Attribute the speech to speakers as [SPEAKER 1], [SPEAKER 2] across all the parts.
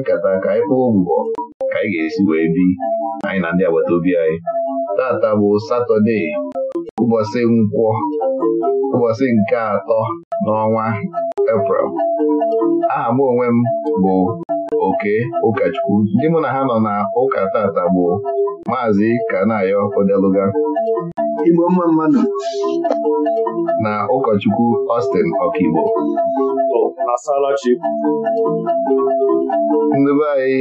[SPEAKER 1] nkata ka anyị kpụọ ka anyị ga-esi wee bi anyị na ndị agbata obi anyị tata bụ satọde ụbọchị nkwọ ụbọchị nke atọ n'ọnwa eprel aha m onwe m bụ oke ụkọchukwu ndị mụ na ha nọ na ụka tata bụ maazị kanayo odeluga mma mmadụ na ụkọchukwu Austin Okigbo ndị anyị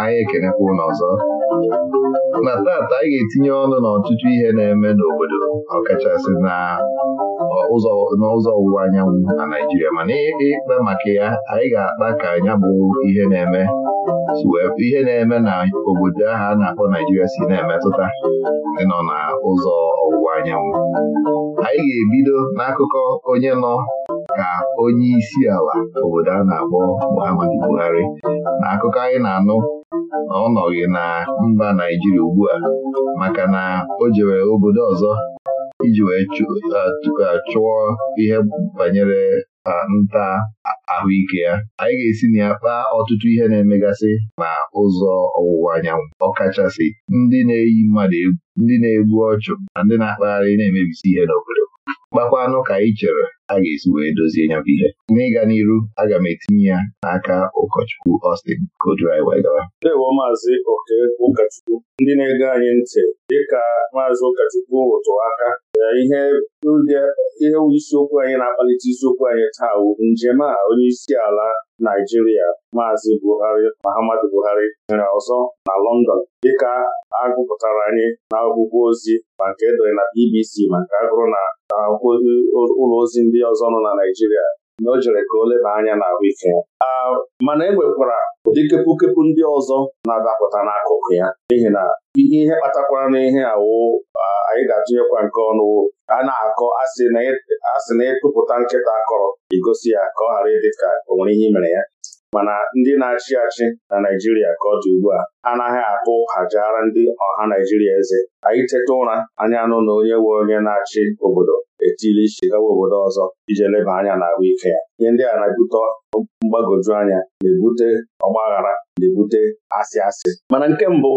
[SPEAKER 1] anyị ekenekwa ụlọ ọzọ na taata anyị ga-etinye ọnụ n'ọtụtụ ihe na-eme n'obodo ọkachasị na ụzọ n'ụzọ ọwụwa anyanwụ na Naijiria mana ikpe maka ya anyị ga-akpa ka anya bụ ihe na-eme ihe na-eme na obodo ahụ a na-akpọ Naijiria si na-emetụta ịnọ na ụzọ ọwụwa anyanwụ anyị ga-ebido n'akụkọ onye nọ ka onye isi ala obodo a na-akpọ Muhammadu Buhari na akụkọ anyị na-anụ na ọ nọghị na mba Naijiria ugbu a maka na o jewere obodo ọzọ iji wee chụọ ihe banyere nta ahụike ya anyị ga-esi na ya kpaa ọtụtụ ihe na-emegasị na ụzọ ọwụwa anyanwụ ọkachasị ndị na-eyi mmadụ egwu ndị na-egbu ọchụ na ndị na-akpagharị na-emebisi ihe n'obodo kpakwanụ ka anyị chere a ga-esi wee dozie ya bụ ihe n'ịga n'iru aga m etinye ya n'aka ụkọchukwu Austin Kodrai wee
[SPEAKER 2] Maazị Oke ndị na-ege anyị ntị dịka Maazị Ụkọchukwu aka ihe ihe isiokwu anyị na-akpalite isiokwu anyị taa bụ njem a onye isi ala Naijiria Maazị Buhari Muhammadu Buhari nyere ọzọ na London dịka agụpụtara anyị na akwụkwọ ozi ma nke edere na BBC maka agụrụ na ụlọ ozi ndị ọzọ nọ na Naijiria na o jere ka o leba anya ike ya mana e nwekwara ụdị kepukepu ndị ọzọ na-adapụta n'akụkụ ya n'ihi na ihe kpatakwara na ihe awụ anyị ga-atụnyekwa nke ọnụ a na-akọ asị na e, ịtụpụta e nkịta akọrọ igosi ya ka ọ ghara ịdị ka o nwere ihe mere ya mana ndị na-achị achị na Naijiria ka ọ dị ugbu a anaghị atụ ụka ndị ọha Naijiria eze anyị teta ụra anya anụ na onye nwe onye na-achị obodo etili chigawa obodo ọzọ ije leba anya n'ahụ ike ya ihe ndị a na-ebute mgbagoju anya na-ebute ọgbaghara na-ebute asị asị mana nke mbụ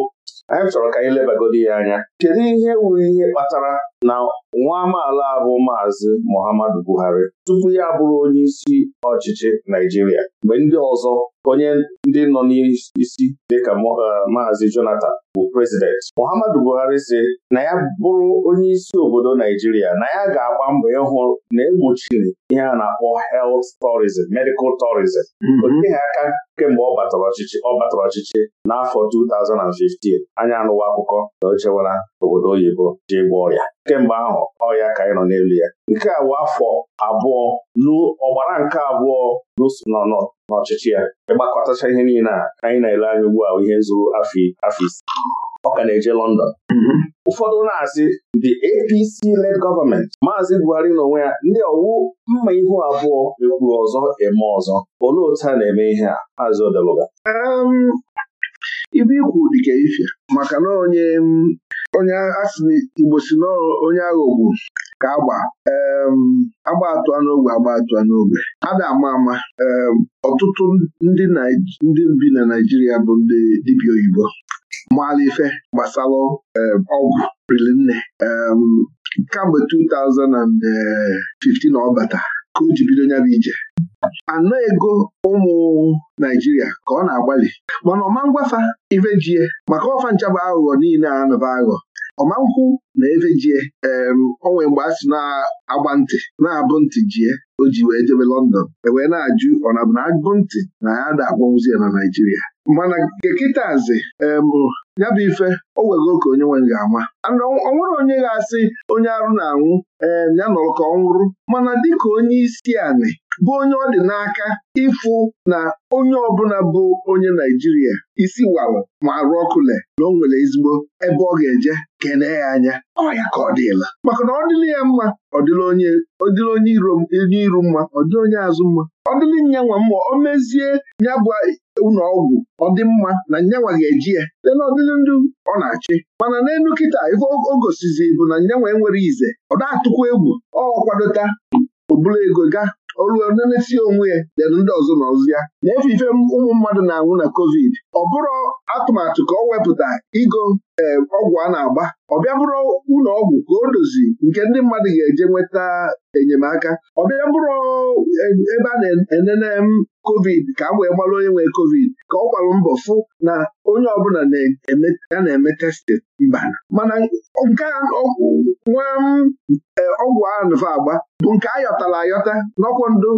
[SPEAKER 2] anyị chọrọ ka anyị lebagodi ya anya kedu ihe wuru ihe kpatara na nwa amaala bụ maazị Muhammadu Buhari tupu ya bụrụ onye isi ọchịchị Naijiria mgbe ndị ọzọ onye ndị nọ n'isi dịka eh, Maazị Jonathan bụ prezident Muhammadu Buhari si na ya bụrụ onye isi obodo Naijiria na ya ga-agba mbọ ịhụ na egbochiri ihe a na-akpọ health tourism medical tourism mhm. oteghị aka kemgbe ọ batara ọchịchị ọ batara ọchịchị n'afọ 2015 anya anụwa akụkọ na ochewara obodo oyibo ji gba ọrịa kemgbe ahụ ọ ya ka anyị nọ n'elu ya nke a bụ afọ abụọ n'ọgbara nke abụọ nọ n'ọchịchị ya ịgbakọtacha ihe niile a anyị na-ele anya ugbu a ihe zuru afọ ise ọ ka na-eje London mm-hmm. ụfọdụ na-asị the APC-led gọọmenti Maazị Buhari n'onwe ya ndị ọwụ mma ihu abụọ ekwuru ọzọ eme ọzọ olee otu a na-eme ihe a Maazị Odeluga
[SPEAKER 3] um, Ibu ikwu dịka ife maka na onye um, onye asị na Igbo si n'ọrụ onye ka agba agba atụa n'ogbe agba atụa n'ogbe a na-ama ama ọtụtụ ndị bi na Naijiria bụ ndị dibịa oyibo maala ife gbasalụ ọgwụ nne kamgbe 2015 ọ bata ka o ji bido ya bụ ije anọ ego ụmụ Naijiria ka ọ na-agbalị mana ọma ngwafa ivejie maka ọfa nchaba aghụghọ niile a anọba aghọ ọma nkwụ na efejie onwe mgbe a sị na-agba ntị na-abụ ntị jie o ji wee jebe London ewee na-ajụ ọ na bụ na agụ ntị na ya da agbanwụzi ya na Naijiria mana nke kịtazi ya bụ ife o nwere okè onye nwe ga ama ọ nwere onye ga-asị onye arụ na-anwụ ee eh, ya nọrọ ka ọ nwụrụ mana dịka onye isi anị bụ onye ọ dị n'aka ịfụ na onye ọbụla bụ onye Naijiria isi walụ ma arụ ọkụle na o nwere ezigbo ebe ọ ga-eje kene ya anya ọ ya ka ọ dịla maka na ọ dịla ya mma ọ dịla onye iro mma ọ dịla onye azụ mma ọ dịrị nyanwa mma o mezie ya bụ ụlọ ọgwụ ọ dị mma na nyanwa ga-eji ya site n'ọdịrị ndụ ọ na-achị mana n'elu kịta ife o gosizi bụ na nyanwa enwere ize ọ na-atụkwa egwu ọ kwadota oburu ego ga olu onye na onwe ya dere ndị ọzọ na ọzụ ya na-efe ife ụmụ mmadụ na-anwụ na covid ọ bụrụ atụmatụ ka ọ wepụta ịgo eh, ọgwụ a na-agba ọ bịa bụrụ ụlọ ọgwụ ka o dozi nke ndị mmadụ ga-eje nweta enyemaka ọ bịa bụrụ eh, ebe a na-enene kovid ka a wee gbalụ onye nwee kovid ka ọ gbalụ mbọ fụ na onye ọbụla ya na-eme testin mba mana nke nwa eh, ọgwụ a nva agba bụ nke ayọtala ayọta n'ọkwụ ndụ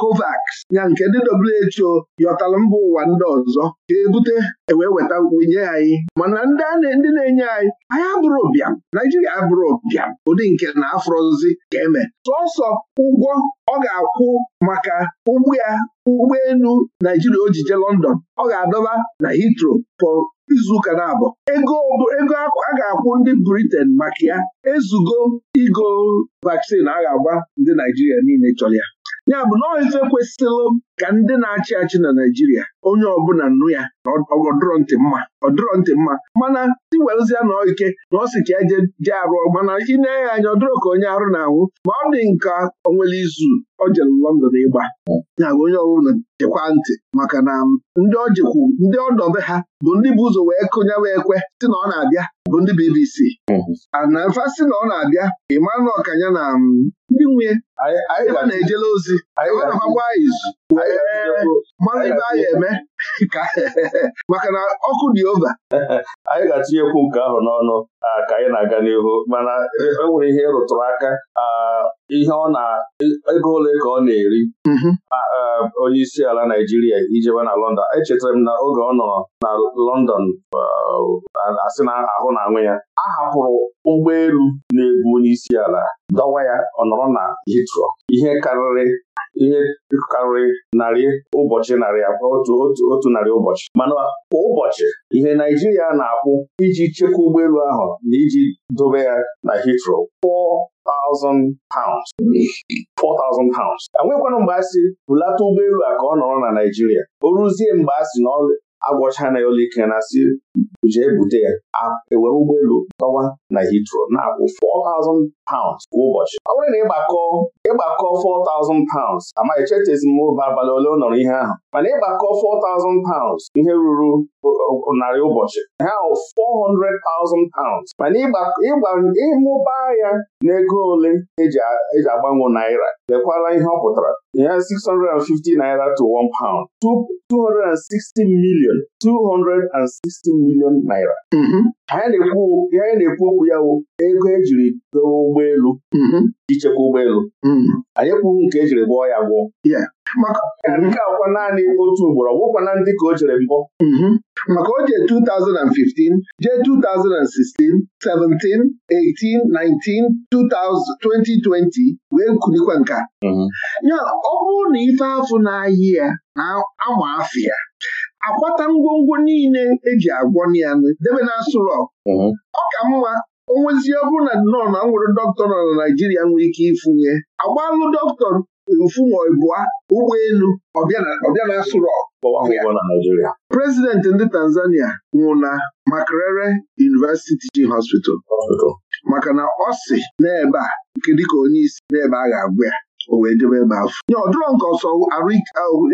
[SPEAKER 3] Covax ya nke ndị WHO yọtala mba ụwa ndị ọzọ ọzọ ka ebute ewee weta nye anyị mana ndị na-enye anyị anyị abụrụ bịam Naijiria abụrụ bịam ụdị nke na afrozi ka eme sọsọ ụgwọ ọ ga-akwụ maka ụgbọ ya ụgbọelu Naijiria o jije London ọ ga-adọba na hitro for izuụka na-abụ ego ego a ga-akwụ ndị Britain maka ya ezugo igo vaccine a ga-agba ndị Naijiria niile chọrọ ya ya bụ na ife kwesịrị ka ndị na-achị achị na Naijiria onye ọbụla nnu ya na ọdụrọ ntị mma ọdụrọ ntị mma mana tiwelzia na ike na ọ sị ka eje je arụ mana ịnee anya ọdụrụ ka onye arụ na-anwụ ma ọ dị nka onwere izu ọ jere London ịgba ya onye ọbụla jekwa ntị maka na ndị ọ jekwu ndị ọdọbe ha bụ ndị bụ ụzọ wee kụnye wee kwe si na ọ na-abịa bụ ndị BBC ana ah, si na ọ na-abịa Emmanuel Ọkanya na mm, ndị nwunye
[SPEAKER 4] ebe na-ejela
[SPEAKER 3] ozi izu anyị eme ka maka na ọkụ dị ova
[SPEAKER 2] anyị ga atụnyekwu nke ahụ n'ọnụ ka anyị na-aga n'ihu mana e, e nwere ihe rụtụrụ aka ihe ọ na ego ole ka ọ na-eri mm-hmm. onye isi ala Naijiria ijewe na London echetara m na oge ọ nọ na London asị na ahụ na-anwụ ya
[SPEAKER 3] a hapụrụ ụgbọelu na-ebu
[SPEAKER 2] onye isi ala dọwa ya ọ nọrọ na hitro ihe karịrị ihe karịrị narị ụbọchị narị abụọ otu narị ụbọchị mana kwa ụbọchị ihe Naijiria na-akwụ iji chekwaa ụgbọelu ahụ na iji dobe ya na Heathrow 4,000 pounds 4,000 pounds mgbe a sị bulata ụgbọelu a ka ọ nọrọ na Naijiria o ruzie mgbe a sị na agwọchana ya ụlọike na asị jee bute ya ewere ụgbọelu tọwa na Heathrow na-akwụ 4,000 pounds kwa ụbọchị ọ bụrụ na ịgbakọ ịgbakọ 4,000 pounds amaghị chetezi m ụba abalị ole nọrọ ihe ahụ mana ịgbakọ 4,000 pounds ihe ruru narị ụbọchị ha 400,000 pounds mana ịmụba ya n'ego ole eji e agbanwe naira Dekwala ihe ọ pụtara ya 650 naira to 1 pound 260 million 260 million naira mm-hmm. anyị na-ekwu okwu ya ego ejiri dowe ụgbọ ụgbọelu mm-hmm. ichekwa ụgbọelu mm-hmm. anyị kwuru nke ejiri gwọọ ya gwọọ
[SPEAKER 3] nke akwa naanị otu ugboro ọgwụkwana ndị ka o jere mbọ mm-hmm. maka oje 2015 jee 2016 17 18 19 2020 wee kulikwa nka ya ọ bụrụ na ife afụ na-ayị ya na ama afọ ya akwata ngwongwo niile eji agwọ ya debe na asụrọ ọ ka mma onwezi ọ na nọ na nwere dọkịta nọ na Naịjirịa nwere ike ịfụnye agbalụ dọkịta mfụma ụgbọ elu ọbịa na asụrọ prezidenti ndị Tanzania nwụ na Makerere University g Hospital maka na ọ si n'ebe a nke dịka onye isi n'ebe a ga agwa ya o wee debe ebe afọ nye ọ nke ọsọ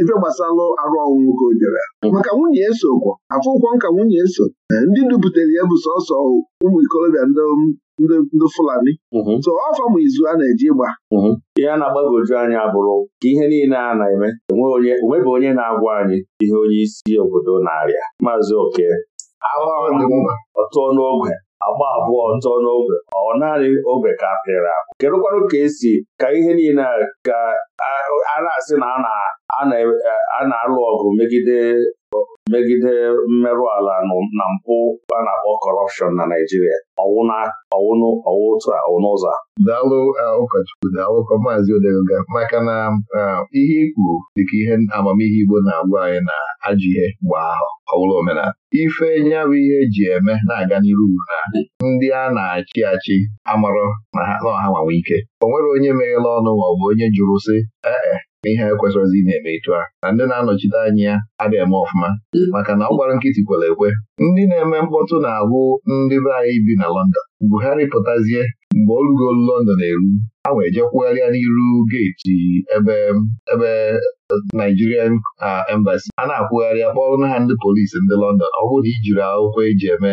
[SPEAKER 3] ife gbasalụ arụ ọnwụ ka o dere maka nwunye eso kwọ afọ ụkwọ nka nwunye eso ndị duputere ya bụ sọsọ ụmụ ikolobịa ndị Fulani mm-hmm. so ọfa ma izu a na-eji ịgba mm-hmm.
[SPEAKER 2] ihe a na-agbagoju anyị abụrụ ka ihe niile a na-eme onweghị onye na-agwa anyị ihe onye isi obodo na-arịa maazị oke ọtụọ n'ogwe agba abụọ ntọ n'ogbe ọ naanị ogbe ka apịrị apụ kedụkwanụ ka esi ka ihe niile ka a na-asị na a na-alụ ọgụ megide megide mmerụ ala na mpụ a na-akpọ kọrọpshọn na Naịjirịa ọwụnụ ọwụ otu
[SPEAKER 1] a daalụ eh, ụkọchukwu daalụ maazị Odeluga maka na eh, ihe ikwu dịka ihe amamihe Igbo na-agwa anyị na ajọ ihe mgbe ahụ ọ omenala ife nyabụ ihe eji eme na-aga n'iru na ndị a na-achị achị amarọ na ha nọọha nwanwe ike o nwere onye meghela ọnụ maọbụ onye jụrụ sị ee eh, ihe ekwesịrọzi na-eme ịtụ a na ndị na-anọchite anya ya adịghị eme ọfụma mm. maka na ọ gbara nkịtị kwere ekwe ndị na-eme mkpọtụ na-abụ ndị be anyị bi na Lọndọn. Buhari pụtazie mgbe o rugo London eru a wee jekwugharịa n'iru geeti ebe ebe eh, Nigerian ah, embassy a na-akwụgharị na ha ndị polisi ndị Lọndọn. ọ bụrụ na ị jiri akwụkwọ eji eme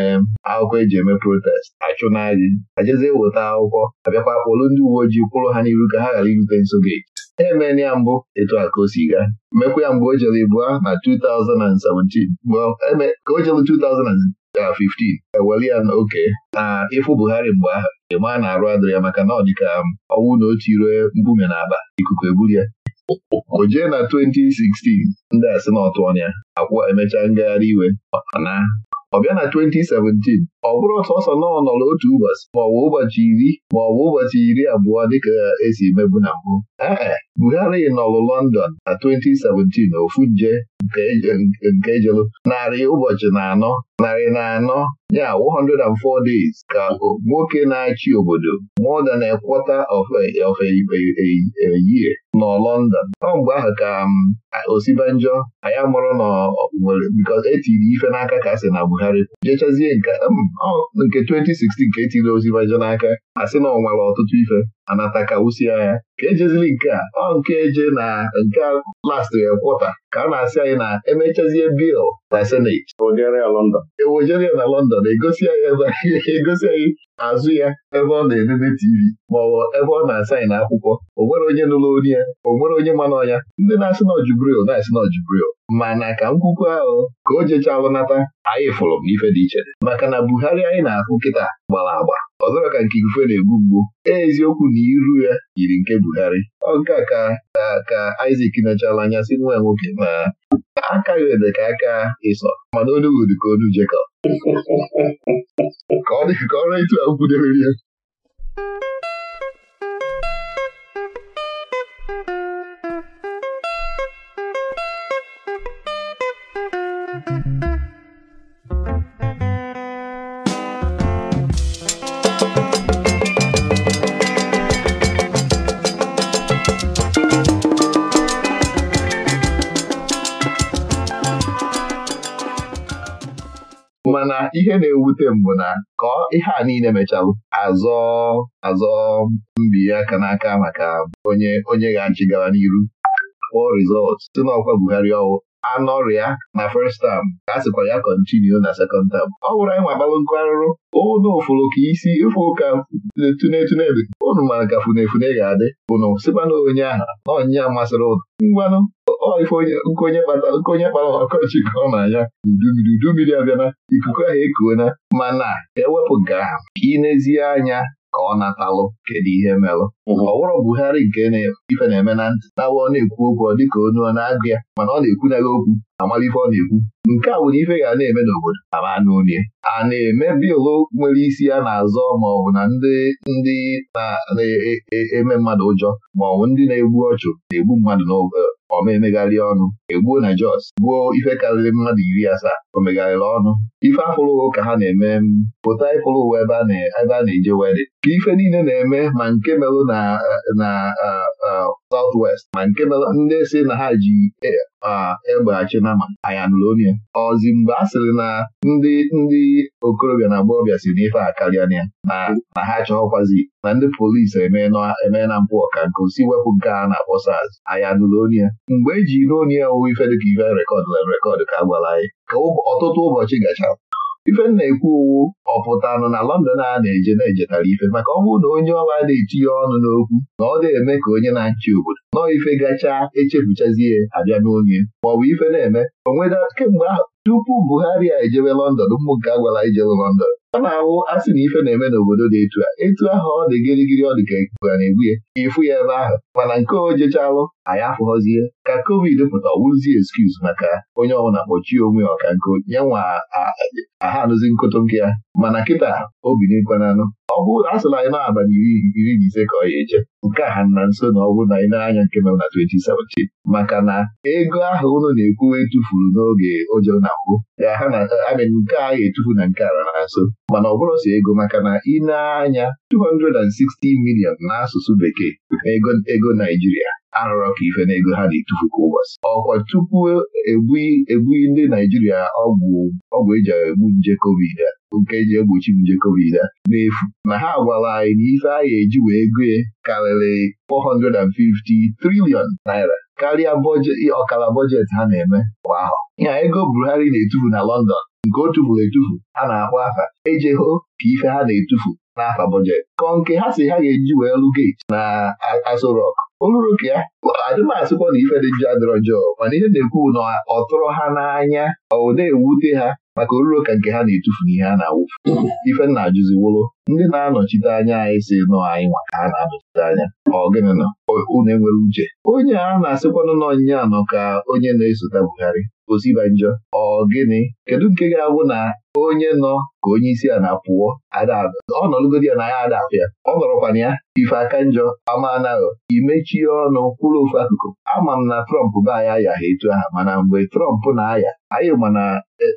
[SPEAKER 1] akwụkwọ eji eme protest achụ n'agị ajezie weta akwụkwọ abịakwa kpọrụ ndị uwe ojii kwụrụ ha n'iru ka ha ghara irute nso geeti emela ya mbụ etu a ka o si mekwa ya mgbe o jere a na 2017 ka o jere 2015 ewere ya na oke na ịfụ Buhari mgbe ahụ ịma na-arụ adịrị ya maka na ọ dịka um, ọnwụ na otu iro mbume na Aba. ikuku eburu ya o jee na 2016 ndị asị na ọtụ ya emechaa ngagharị iwe na ọ bịa na 2017 ọ bụrụ ọsọ nọ ọ nọrọ otu ụbọchị maọbụ ụbọchị iri maọbụ ụbọchị iri abụọ dịka esi mebu na mbụ ee Buhari nọrụ London na 2017 ofu nje nke e e jelu narị ụbọchị na anọ narị na anọ ya 104 days ka nwoke na-achị obodo more than a of a year nọ London ọ mgbe ahụ ka um, osibanjọ anyị amụrụ n'owere etiri e ife n'aka ka asị na Buhari jechazie nke 2016 um, ka etiri osibanjọ n'aka asị na ọ ọtụtụ ife anata ka wusie ya ka ejezili nke a ọ nke eje na nke last kwọta ka a na-asị anyị na emechazie bil na seneti ewojeria na London egosi anyị e azụ ya ebe ọ na-elele TV maọbụ ebe ọ na-asaịn akwụkwọ o nwere onye nụrụ onye ya o nwere onye mana ọnya ndị na-asị na ọjubril na-asị na mana ka nkwukwu ahụ ka o jechalụ nata anyị fụrụ m ife dị iche maka na Buhari anyị na-ahụ nkịta gbara agba ọ ka nke ifufe na-egbu mgbu eziokwu na iru ya yiri nke Buhari ọ nke a ka ka Isaac nọchala anya si nwa nwoke ma aka ede ka aka ịsọ mana onugbu ka onu Jekọb ka ọ dị ka ọrụ etu ya mana ihe na-ewute mbụ na ka ihe a niile mechalụ azọ azọ Mbi aka n'aka maka onye onye ga-achị gara n'iru kpọọ rizọt site n'ọkwa Buhari ọwụ anọrịa na first term ka a sịkwa ya kọntinu na second term ọ bụrụ anyị nwabalụ nkụ arụrụ ụnụ ụfụrụ ka isi ịfụ ụka tuntunebe ụnụ mara ka funefune ga-adị ụnụ sịkwana onye ahụ na onye a masịrị ụnụ ngwanụ onye kpara ọkọchị ka ọ na-anya udummiri abịana ikuku ahụ ekuona mana ewepụ nke ahụ ka ị n'ezie anya ka ọ natalụ kedu ihe merụ. ọ bụrụ Buhari nke ife na-eme na ntị na ọ na-ekwu okwu ọ dịka onye ọ na-agụ ya mana ọ na-ekwunaghị ekwu okwu amara ife ọ na-ekwu nke a nwere ife ga na-eme n'obodo ama n'unie a na-eme bịlụ nwere isi ya na-azọ ma ọ bụ na ndị ndị na-eme mmadụ ụjọ ma ọ bụ ndị na-egbu ọchụ na-egbu mmadụ n'obodo ọ ma ọnụ egbuo na Jos gbuo ife karịrị mmadụ iri asaa o megharịrị ọnụ ife afụrụ ka ha na-eme pụta ịfụrụ ụwa ebe a na-eje wedị ka ife niile na-eme ma nke merụ na South West ma nke ndị si na ha ji e, egbeghachi na ma Ayanulonia ọzi mgbe a sịrị na ndị ndị okorobịa na agbọghọbịa si n'ife a karịa na ya na ha achọghọkwazi na ndị polisi emee na mpụ ọka nke osi wepụ nke na-akpọ SARS mgbe eji n'onye ya ife dịka ife rekọd na rekọd ka a gwara anyị ka ọtụtụ ụbọchị gachara ife na-ekwu owu ọ pụtanụ na London a na-eje na-ejetara ife maka ọ bụrụ na onye ọwa na-etinye ọnụ n'okwu na ọ na-eme ka onye na-achị obodo nọọ ife gachaa echefuchazie abịa n'onye ma ife na-eme onweda kemgbe ahụ tupu Buhari a ejebe London ụmụ a gwara ijewe London a na-awụ asị na ife na-eme n'obodo dị etu a etu ahụ ọ dị gịrịgịrị ọ dị ka ikuku ya, na-egbu ya ịfụ ya ebe ahụ mana nke o anyị afụghọzie ka covid pụta ọwụzi eskuz maka onye ọbụla kpọchie onwe ya ọka nko ya nwa aha anụzi nkụtụ nke ya mana kịta obi n'ekwananụ ọ bụrụ asụla anyị na abalị iri na ise ka ọ ya eje nke a ha na nso na ọ bụrụ na anyị na-anya nke nọ na 2017 maka na ego ahụ ụlọ na-ekwuwe etufuru n'oge ụjọ na mbụ nke a ga-etufu na nke ala na nso mana ọ bụrụ si ego maka na ị na-anya 260 million n'asụsụ bekee ego Naijiria arụrụ ka ife n'ego ha na-etufu ka ụbọchị ọkwa tupu ebughị e ndị Naijiria ọgwụ eji egbu nje covid a nke eji egbochi nje covid a n'efu na ha agwala anyị na ife a ga-eji wee ego karịrị 450 triliọn naira karịa ọkara bọjetị ha na-eme kwa ahọ ya ego Buhari na-etufu na London nke otu tufuru etufu ha na-akpọ afa eje hụ ka ife ha na-etufu n'afa bọjet kọ nke ha si ha ga-eji wee lụ gate na Aso Rock oluru ka ya adịmasịkwa na ife dị njọ adịrọ njọọ mana ihe na-ekwu na ọ tụrụ ha n'anya ọ na-ewute ha maka oruro ka nke ha na-etufu n'ihe a na-awụfu ife na-ajụziwolo ndị na-anọchite anya anyị si nọ anyị nwa ka ha na-anọchite anya ọ gịnị na unu enwere uche onye a na-asịkwanụ nọ nya nọ ka onye na-esote Buhari osiba njọ ọ gịnị kedu nke ga-abụ na onye nọ ka onye isi a na-apụọ ọ nọlụgodi ya na ya ada apụ ya ọ nọrọkwana ya ife aka njọ ama imechie ọnụ kwụrụ ofu akụkụ ama m na Trump be anyị ayaha etu aha mana mgbe Trump na-aya anyị mana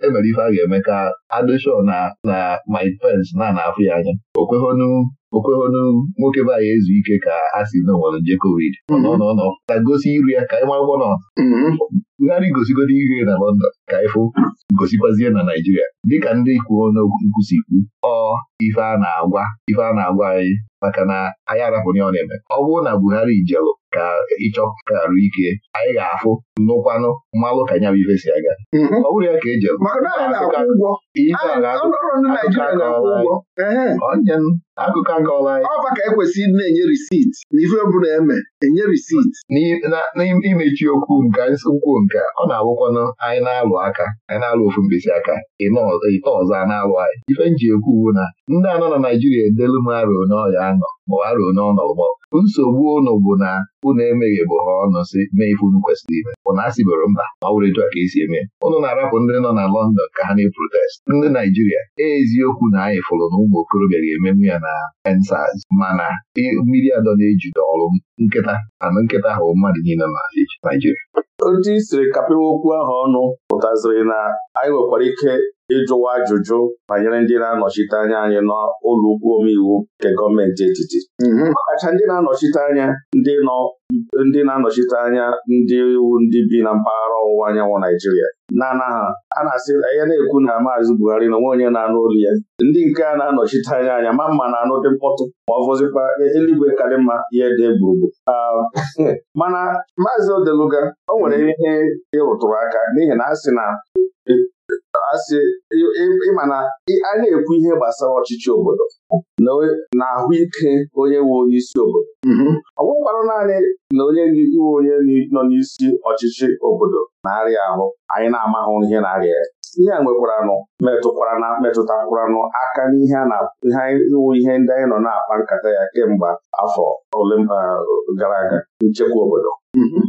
[SPEAKER 1] emere e ife a ga-eme ka adịshọ na na Mike Pence na anafụ ya anya okweghonu okwehonu nwoke be anyị ezu ike ka a si na nje covid mhm. nọ ka gosi iru ya ka ị nwa ụgbọ nọ Buhari mhm. gosigodi ihe na London ka ịfụ gosikwazie na Naijiria dịka ndị kwuo n'okwu si kwu ọ ife a na-agwa ife a na-agwa anyị maka na anyị arapụnye ọ na-eme ọ bụrụ na Buhari jelụ ka ịchọ arụ ike anyị ga-afụ nnụkwanụ mmalụ ka nya bụ ife si aga mhm. ọ bụrụ ya ka ejelụ akụkọ akọla anyị ọba ka ekwesịrị na-enye risit na ife ọbụla eme enye risit n'imechi okwu nke nkwụ nke ọ na awụkwanụ anyị na-alụ aka anyị na-alụ ofu mkpịsị aka ite ọzọ na-alụ anyị ife nji ekwu bụ na ndị anọ na Naijiria edelu m arụo n'ọya anọ ma arụo n'ọnọgbọ nsogbu ụnụ bụ na ụnụ emeghị bụ ha ọnụ si mee ife unu kwesịrị ime ụnụ asịboro mba ma ọ etu a ka esi eme ụnụ na-arapụ ndị nọ na London ka ha na-eprotest ndị Naijiria eziokwu na anyị fụrụ na ụmụ okorobịa ga-ememe ya na na ensaz mana mmiri adọ na-ejide ọrụ nkịta anụ nkịta ahụ mmadụ niile na Naijiria
[SPEAKER 2] otu isiri siri kapịwa okwu ahụ ọnụ pụtaziri na anyị nwekwara ike ịjụwa ajụjụ banyere ndị na-anọchite anya anyị n'ụlọ ukwu omeiwu nke gọọmenti etiti ọkacha mhm. ndị na-anọchite anya ndị nọ ndị na-anọchite anya ndị iwu ndị bi na mpaghara ọwụwa anyanwụ Naijiria na ha a na-asị ya na-ekwu na maazị Buhari na onwe onye na-anụ olu ya ndị nke a na-anọchite anya anya ma mma na-anụ dị mkpọtụ ma ọ fọzikwa eluigwe karị mma ihe dị gburugburu mana maazị Odeluga o nwere ihe ịrụtụrụ aka n'ihi na a sị na asị ịma na a na-ekwu ihe gbasara ọchịchị obodo na ahụike onye nwe onye isi obodo mm-hmm. ọ bụkwarụ naanị na onye iwe onye nọ n'isi ọchịchị obodo na-arịa ahụ anyị na-amahụ ihe na-arịa ya ihe a nwekwaranụ metụkwara metụtakwaranụ aka n'ihe a na-iwu ihe ndị anyị nọ na-akpa nkata ya kemgbe afọ ole gara aga nchekwa obodo mm-hmm.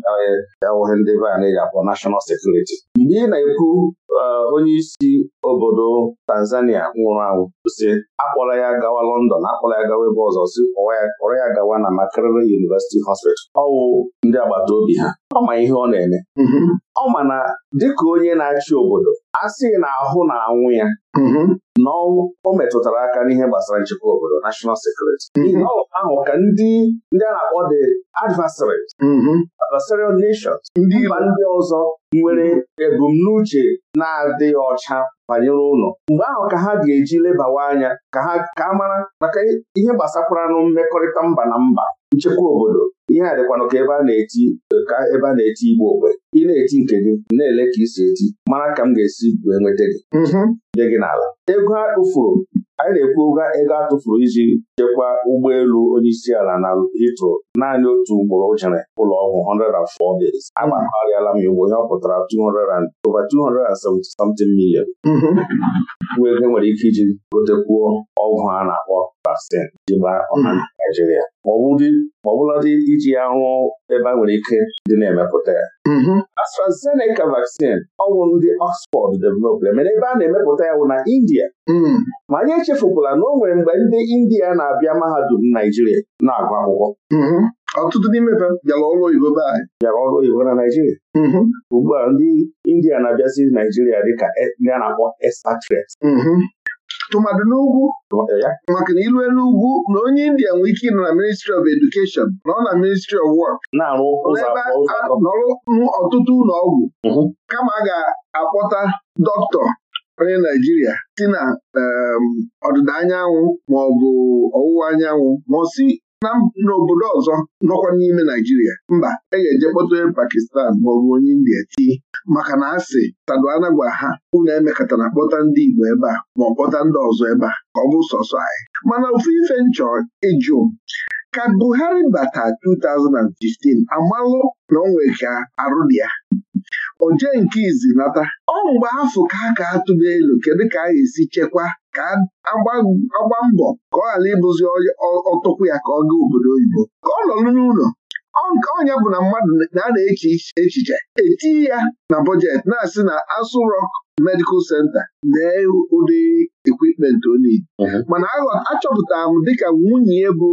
[SPEAKER 2] awụghị ndị be a na-eji akpọ nashọnal sekuriti mgbe ị na-ekwu e, onye isi obodo Tanzania nwụrụ anwụ si akpọla ya gawa London akpọrọ ya gawa ebe ọzọ si kpọrọ ya gawa na Makerere University Hospital ọwụ ndị agbata obi ha ọ ma ihe ọ na-eme mm-hmm. ọ ma na dịka onye na-achị obodo a sị na ahụ mm-hmm. na anwụ ya na o metụtara aka n'ihe gbasara nchekwa obodo national security mm-hmm. ahụ ka ndị ndị a na-akpọ the adversary adversarial nations mba ndị ọzọ nwere ebumnuche na-adịghị ọcha banyere ụlọ mgbe ahụ ka ha ga-eji lebawa anya ka a mara maka ihe gbasakwaranụ mmekọrịta mba na mba nchekwa obodo ihe a dịkwanụ ka ebe a na-eti ka ebe a na-eti igbo ogbe ị na-eti nke gị na-ele ka isi eti mara ka m ga-esi wee nweta gị dị mhm. gị n'ala ego a kpụfuru anyị na-ekwu ego atụfuru iji chekwa ụgbọelu onyeisiala na ịtụ naanị otu ugboro jere ụlọ ọgwụ 104 days agbakọrịala m igbo ihe ọ pụtara over 270 million
[SPEAKER 4] bụ mm-hmm.
[SPEAKER 2] nwere ike iji gotekwuo ọgwụ a na-akpọ Pastin ji gbaa ọha hmm. Naijiria ma ọ iji ya rụọ ebe a nwere ike dị na-emepụta ya mm-hmm. AstraZeneca vaccine ọgwụ ndị Oxford developed emere ebe a na-emepụta ya bụ na India mm. ma anyị echefukwala na o nwere mgbe ndị India na-abịa mahadum Naijiria na-agụ akwụkwọ mm-hmm. ọtụtụ n'ime bịara ọrụ oyibo be anyị bịara ọrụ oyibo na Naijiria mm-hmm. ugbu a ndị India na-abịazi Naijiria dịka e, a na-akpọ expatriates
[SPEAKER 3] Tụmadị n'ugwu maka na ilue n'ugwu na onye India nwee ike ịnọ na ministry of education nọ na ministry of work nọrụ ọtụtụ ụlọ ọgwụ mhm. kama a ga-akpọta dọkịta onye Naijiria si na ehm, ọdịda anyanwụ ma ọ bụ ọwụwa anyanwụ ma ọ si na n'obodo ọzọ nọkwa n'ime Naijiria mba e ga-eje Pakistan maọbụ onye India tii maka na asị tado anagwa ha unu emekọtara kpọta ndị Igbo ebe a ma ọ kpọta ndị ọzọ ebe a ka ọ bụ sọsọ anyị mana ofu ife nchọ ịjụ ka Buhari bata 2015 amalụ na onwe ka arụ dị ya oje nke izi nata ọ mgbe afọ ka a ka atụba elu kedu ka a ga-esi chekwa ka agba mbọ ka ọ ghara ịbụzi ọtụkwu ya ka ọ gaa obodo oyibo ka ọ nọrọ n'ụlọ nke ọnya bụ na mmadụ na a na-eche echiche etinye ya na bọjetị na-asị na asụ Rock Medical senta lee ụdị ekwipment onye mhm. mana achọpụtara m dịka nwunye bụ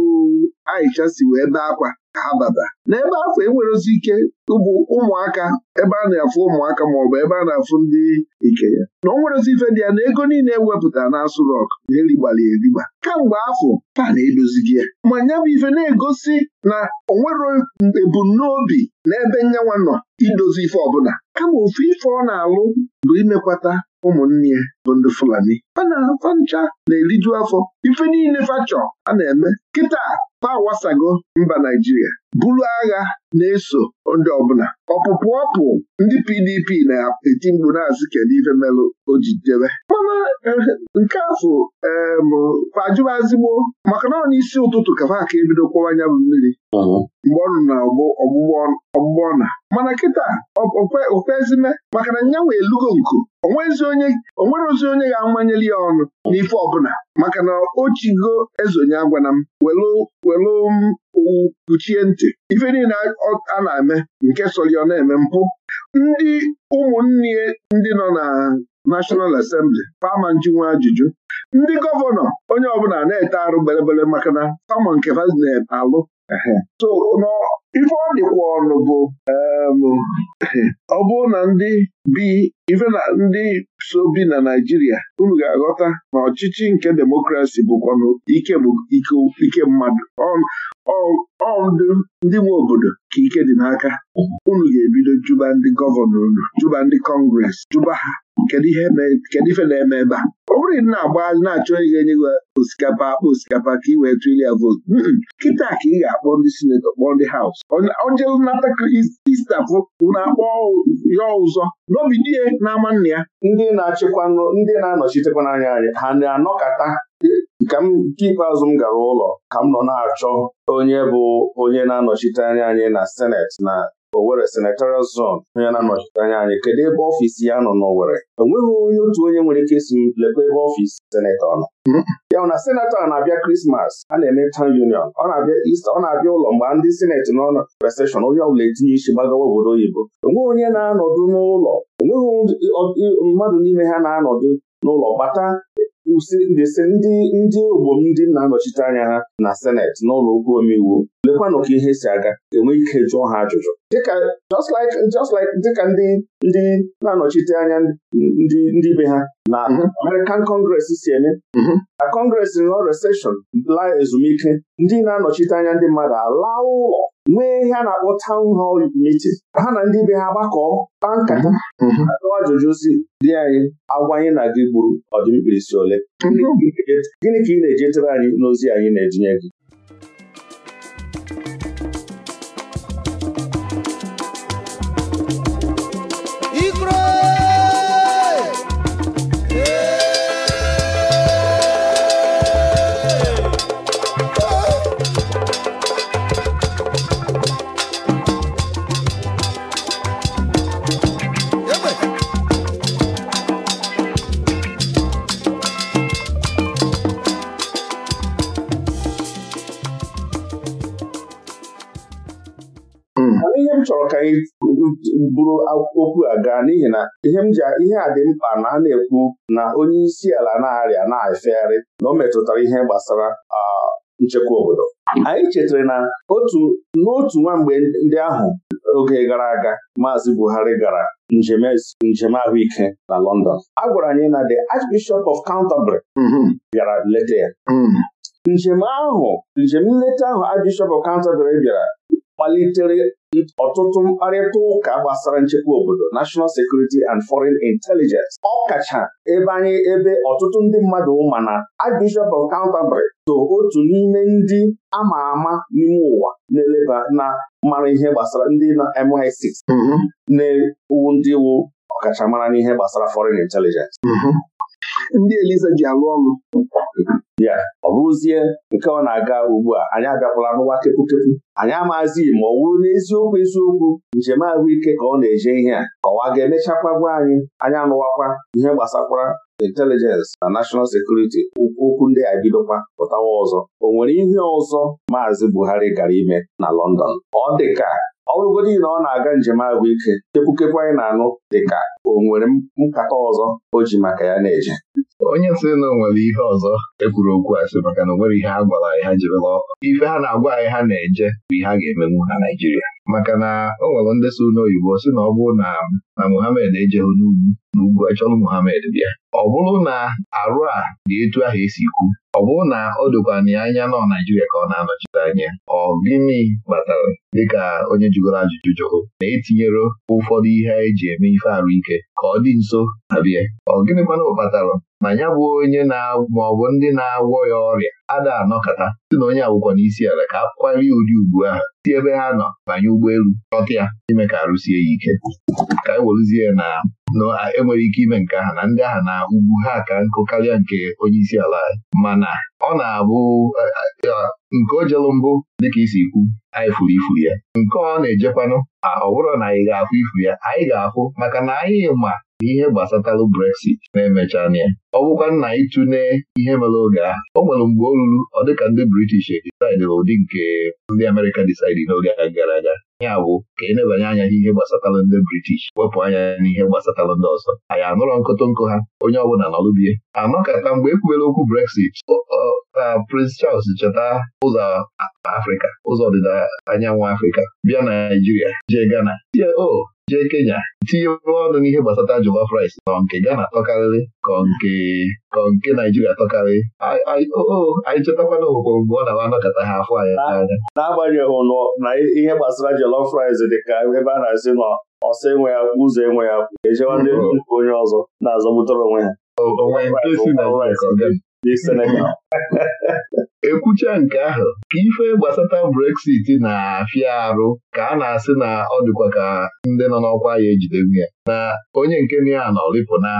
[SPEAKER 3] Aisha si wee bee akwa ka n'ebe afọ enwerezi ike ụbụ ụmụaka ebe a na-afụ ụmụaka maọbụ ebe a na-afụ ndị ike ya na o ife dị ya na ego niile ewepụtara na asụ e rọk na erigbara erigba kamgbe afọ pana edozighị ya ma nya bụ ife na-egosi na onwere ebumnobi na ebe nyanwa nọ idozi ife ọbụla kama ofu ife ọ na-alụ bụ imekwata ụmụnne ya bụ ndị Fulani fa ncha na-eriju afọ ife niile fachọ a na-eme kịta fa wasago mba Naijiria buru agha na-eso ndị ọbụla ọpụpụ ọpụ ndị PDP na-eti mkpu na-asị kedu ife melụ ojidebe mana eh, nke afọ ajụba azigbo maka na ọ n'isi ụtụtụ ka fa aka ebido kwọwa anya bụ mmiri
[SPEAKER 4] mgbe
[SPEAKER 3] ọ nọ na ọgbụgbọ ọna mana kịta okwezime maka na nyanwa elugo nku onwere ozi onye ga-amanyeli ya ọnụ n'ife ọbụla maka na o chigo ezonye agwana m welu owu kpuchie ntị ife niile a na-eme nke sọrọ na-eme mpụ ndị ụmụnne ndị nọ na National Assembly pama njinwa ajụjụ ndị gọvanọ onye ọbụla na-ete arụ belebele maka na sama nke na-alụ so ife ọ dịkwa ọnụ bụ ọ bụrụ na ndị bi ife na ndị so bi na Naijiria unu ga-aghọta na ọchịchị nke demokrasi bụkwanụ ike mmadụ ọ ndị nwe obodo ka ike dị n'aka unu ga-ebido juba ndị gọvanọ unu juba ndị kọngres juba ha kedu ife na-eme ebe a bụrụ na ị na-agba na-achọ ihe enye gị osikapa akpa osikapa ka ị wee tụrụ ya vootu kịta ka ị ga-akpọ ndị sinetọ kpọọ ndị haus ojelu nata istafụ na akpọ ya ụzọ n'obi na ama n'ama nna ya ndị na ndị na-anọchitekwa n'anya anyị
[SPEAKER 2] ha na-anọkọta ka nke ikpeazụ m gara ụlọ ka m nọ na-achọ onye bụ onye na-anọchite anya anyị na seneti na owere Senatorial Zone onye na-anọchite anya anyị kedu ebe ọfiisi ya nọ n'Owerri enweghị onye otu onye nwere ike isi lekwa ebe ọfiisi senetọ nọ ya bụ na senetọ na-abịa Krismas a na-eme town union ọ na-abịa Ista ọ na-abịa ụlọ mgbe ndị sineti nọ na reseshọn onye ọbụla etinye isi gbagawa obodo oyibo enweghị onye na-anọdụ n'ụlọ enweghị mmadụ n'ime ha na-anọdụ n'ụlọ gbata ndịsị ndị ndị ogbom ndị na-anọchite anya ha na seneti n'ụlọ okwu omeiwu lekwanụ ka ihe si aga enwe ike jụọ ha ajụjụ dịka ndị ndị na-anọchite anya ndị ndị be ha na mhm. American Congress si eme na mhm. Congress nọ recession la ezumike ndị na-anọchite anya ndị mmadụ ala ụlọ nwee ihe a na-akpọ town hall miti ha na ndị be ha gbakọọ kpaa nkata mhm, mhm. atụwa ajụjụ si dị anyị agwa anyị na gị gburu ọdịmkpirisi ole mhm. gịnị ka ị na-ejetere anyị n'ozi anyị na-etinye gị
[SPEAKER 3] chọrọ ka anyị bụrụ
[SPEAKER 2] okwu a gaa n'ihi na ihe m ji ihe a dị mkpa na a na-ekwu na onye isi ala na-arịa na-efegharị na o metụtara ihe gbasara nchekwa obodo anyị chetara na otu n'otu nwa mgbe ndị ahụ oge gara aga Maazị Buhari gara njem e, njem ahụike na London a gwara anyị na the Archbishop of Canterbury mm-hmm. bịara leta ya mm-hmm. njem ahụ njem nleta ahụ Archbishop of Canterbury bịara malitere ọtụtụ mkparịta ụka gbasara nchekwa obodo National Security and Foreign Intelligence ọ kacha ebe ebe ọtụtụ ndị mmadụ ma na Archbishop of Canterbury so otu n'ime ndị ama ama n'ime ụwa na-eleba na mara ihe gbasara ndị na MI6 mm-hmm. na-ewu ndị wu ọkachamara n'ihe gbasara foreign intelligence mm-hmm.
[SPEAKER 3] ndị eliza ji alụ ọrụ
[SPEAKER 2] ya ọ bụrụzie nke ọ na-aga ugbu a anyị abịakwala n'ụwa kepukepu anyị amaghịzi ma ọ wụrụ n'eziokwu eziokwu njem ahụike ka ọ na-eje ihe a ka ọwa ga-emechakwa gwa anyị anyị anụwakwa ihe gbasakwara intelijensị na nashọnal sekuriti okwu ndị a bidokwa pụtawa ọzọ o nwere ihe ọzọ maazị Buhari gara ime na London ọ ka. ọ bụrụgodị na ọ na-aga njem ahụike kepukepu anyị na-anụ dịka o nwere nkata ọzọ o ji maka ya na-eje
[SPEAKER 1] onye sị na onwere nwere ihe ọzọ ekwuru okwu a sị maka na o nwere ihe a gwara anyị ha jirila ife ha na-agwa anyị ha na-eje bụ ihe a ga-emenwu na Naijiria! maka na o nwere ndị so n'oyibo si na ọ bụrụ na na Muhammad ejeghị n'ugwu n'ugwu achọrọ Muhammad bịa ọ bụrụ na arụ a dị etu ahụ esi kwu ọ bụrụ na o dokwana ya anya nọ Naijiria ka ọ na-anọchite anya ọ gịnị kpatara dịka onye jụgoro ajụjụ jụrụ na-etinyere ụfọdụ ihe eji eme ife arụ ike ka ọ dị nso abịa ọ gịnị mana ọ ma ya bụ onye ma ọ bụ ndị na-agwọ ya ọrịa ada anọkata si na onye agwụkwọ n'isi ala ka a kwarie ụdị ugbu ahụ si ebe ha nọ banye ụgbọelu chọta ya ime ka arụsie ya ike ka nọ enwere ike ime nke aha na ndị ahụ na ugwu ha ka nkụ karịa nke onye isi ala anyị mana ọ na-abụ nke o jelu mbụ dịka isi kwu, anyị furu ifu ya nke ọ na-ejekwanụ a ọ bụrụ na anyị ga-afụ ifu ya anyị ga-afụ maka na anyị ma ihe gbasatalụ Brexit na-emecha ya ọ bụkwa nna ịtụne ihe mere oge ahụ o nwere mgbe o ruru ọ dịka ndị British disaidịrị ụdị nke ndị Amerịka disaidị n'oge gara aga ya bụ ka e nebanye anya n'ihe gbasatara ndị british wepụ anya n'ihe gbasatara ndị ọzọ anyị anụrọ nkụtụ nkụ ha onye ọ ọbụla nọrụbie anọkọta mgbe ekwubere okwu brexit Prince Charles cheta ụzọ Afrịka ụzọ ọdịda anyanwụ Afrịka bịa na Naịjirịa jee Ghana tie o jee Kenya tinye ọnụ n'ihe gbasata jollof rice nọ nke Ghana tọkarịrị ka nke ka nke Naịjirịa tọkarịrị anyị chetakwana ogbogbo mgbe ọ na-awa ha afọ anyị anya
[SPEAKER 2] n'agbanyeghị nọ na ihe gbasara jollof rice dịka ebe a na-asị nọ ọsọ enwe ya ụzọ enwe ya ejewa ndị onye ọzọ na-azọgbutere onwe ha
[SPEAKER 1] ekwucha nke ahụ ka ife gbasata Brexit na-afịa arụ ka a na-asị na ọ dịkwa ka ndị nọ n'ọkwa ya ejidewu ya na onye nke na ya nọ rịpụna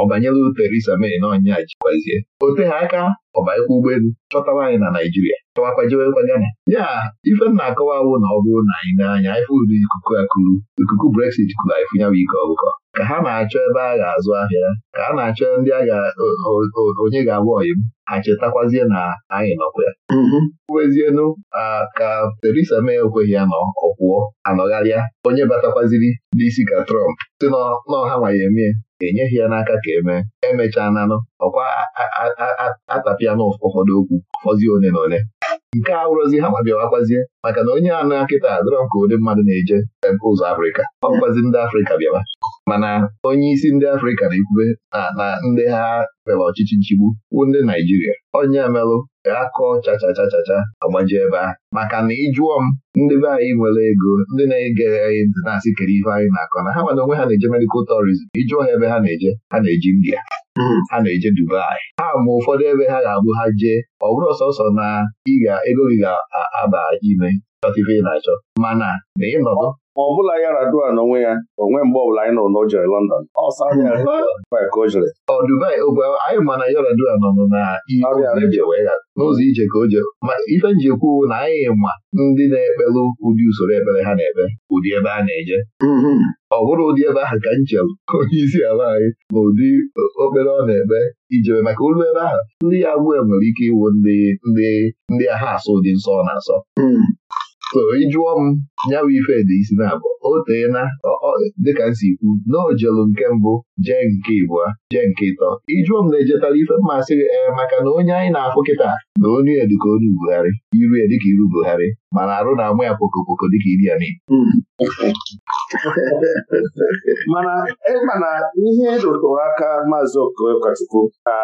[SPEAKER 1] ọ banyela Theresa May na ọnya jikwazie Ote ha aka ọbanyekwa ụgbọelu chọtawa anyị na Naijiria chọwakwa jewekwa Ghana ya ife m na-akọwa awụ na ọ bụrụ na anyị n'anya ifụ ụdị ikuku akụrụ ikuku Brexit kụrụ anyị fụnyawa ike ọgụkọ ka ha na-achọ ebe a ga-azụ ahịa ka ha na-achọ ndị onye ga-agwa oyim ha chetakwazie na anyị nọkwa ya wezienu mm-hmm. ka Terisa May ekweghị ya na ọ anọgharịa onye batakwaziri n'isi ka Trump si n'ọha nwaye emee enyeghị ya n'aka ka emee emechaa nanụ ọkwa atapịa na ụfọdụ okwu fọzie one na one nke a wụrụzi ha ma maka na onye anụ nkịta drọm ka ụdị mmadụ na-eje ụzọ Afrịka ọkwazi ndị Afrịka bịawa mana onye isi ndị Afrịka na-ekwube na ndị ha mere ọchịchị nchigbu bụ ndị Naijiria onye emelụ ga-akọ chachachachacha agbaji ebe a maka na ịjụọ m ndị be anyị nwere ego ndị na-ege anyị ntị na-asị kere ife anyị na-akọ na ha nwere onwe ha na-eje medikal tourism ịjụọ ha ebe ha na-eje ha na-eji India hmm. ha na-eje Dubai ha ma ụfọdụ ebe ha ga-abụ ha jee ọ bụrụ sọsọ na ịga ego gị ga-aba ime chọta ife ị na-achọ mana na ịnọdụ ma ọ bụla ya radua n'onwe ya onwe mgbe ọbụla anyị na jere London jere anyị ma na yaradua radua nọ n'ụzọ ije ka o jere ma ife njikwa na anyị ma ndị na-ekpelụ ụdị usoro ekpere ha na-ekpe ụdị ebe a na-eje mm-hmm. ọ bụrụ ụdị ebe ahụ ka m chere onye isi ala anyị na ụdị okpere ọ na-ekpe ijere maka olu ebe ahụ ndị ya abụọ nwere ike iwu ndị ndị ndị ahụ asụ ụdị nsọ ọ na-asọ mm-hmm. O ị jụọ m ya bụ ife isi na-abụ o tee dịka nsi kwu na ojelu nke mbụ jee nke ibụa jee nke ịtọ ịjụọ m na-ejetara ife mmasị gị ee maka na onye anyị na-afụ kịta na onye ya dịka onu iru ya dịka iru Buhari mana arụ na-amụ ya pokopoko dịka iri ya n'ibu
[SPEAKER 3] mana ịma e, na ihe rụtụrụ e aka maazị Okachukwu ka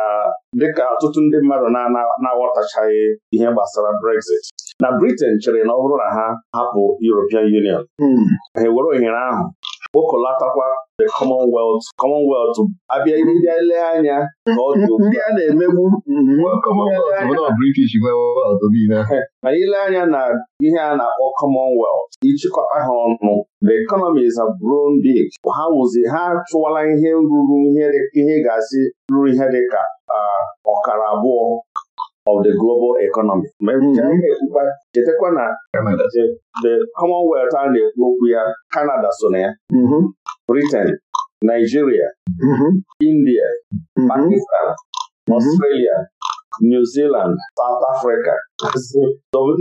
[SPEAKER 2] dịka ọtụtụ ndị mmadụ na-aghọtachaghị ihe gbasara Brexit na Britain chere na ọ bụrụ na ha hapụ Europe European Union hmm. ha were ohere ahụ kpokọlatakwa the Commonwealth Commonwealth abịa bịa lee anya
[SPEAKER 3] na ọ dị ndị a na-emegbu mana hmm. ile anya na
[SPEAKER 2] ihe a na-akpọ Commonwealth ịchịkọta ha ọnụ the economies of Burundi ha wụzi ha chụwala ihe ruru ihe ga-asị ruru ihe dịka ah, ọkara abụọ of the global economy. chetakwa na the Commonwealth a na-ekwu okwu ya Canada so na ya mm-hmm. Britain Nigeria mm-hmm. India mm-hmm. Pakistan Australia New Zealand South Africa obodo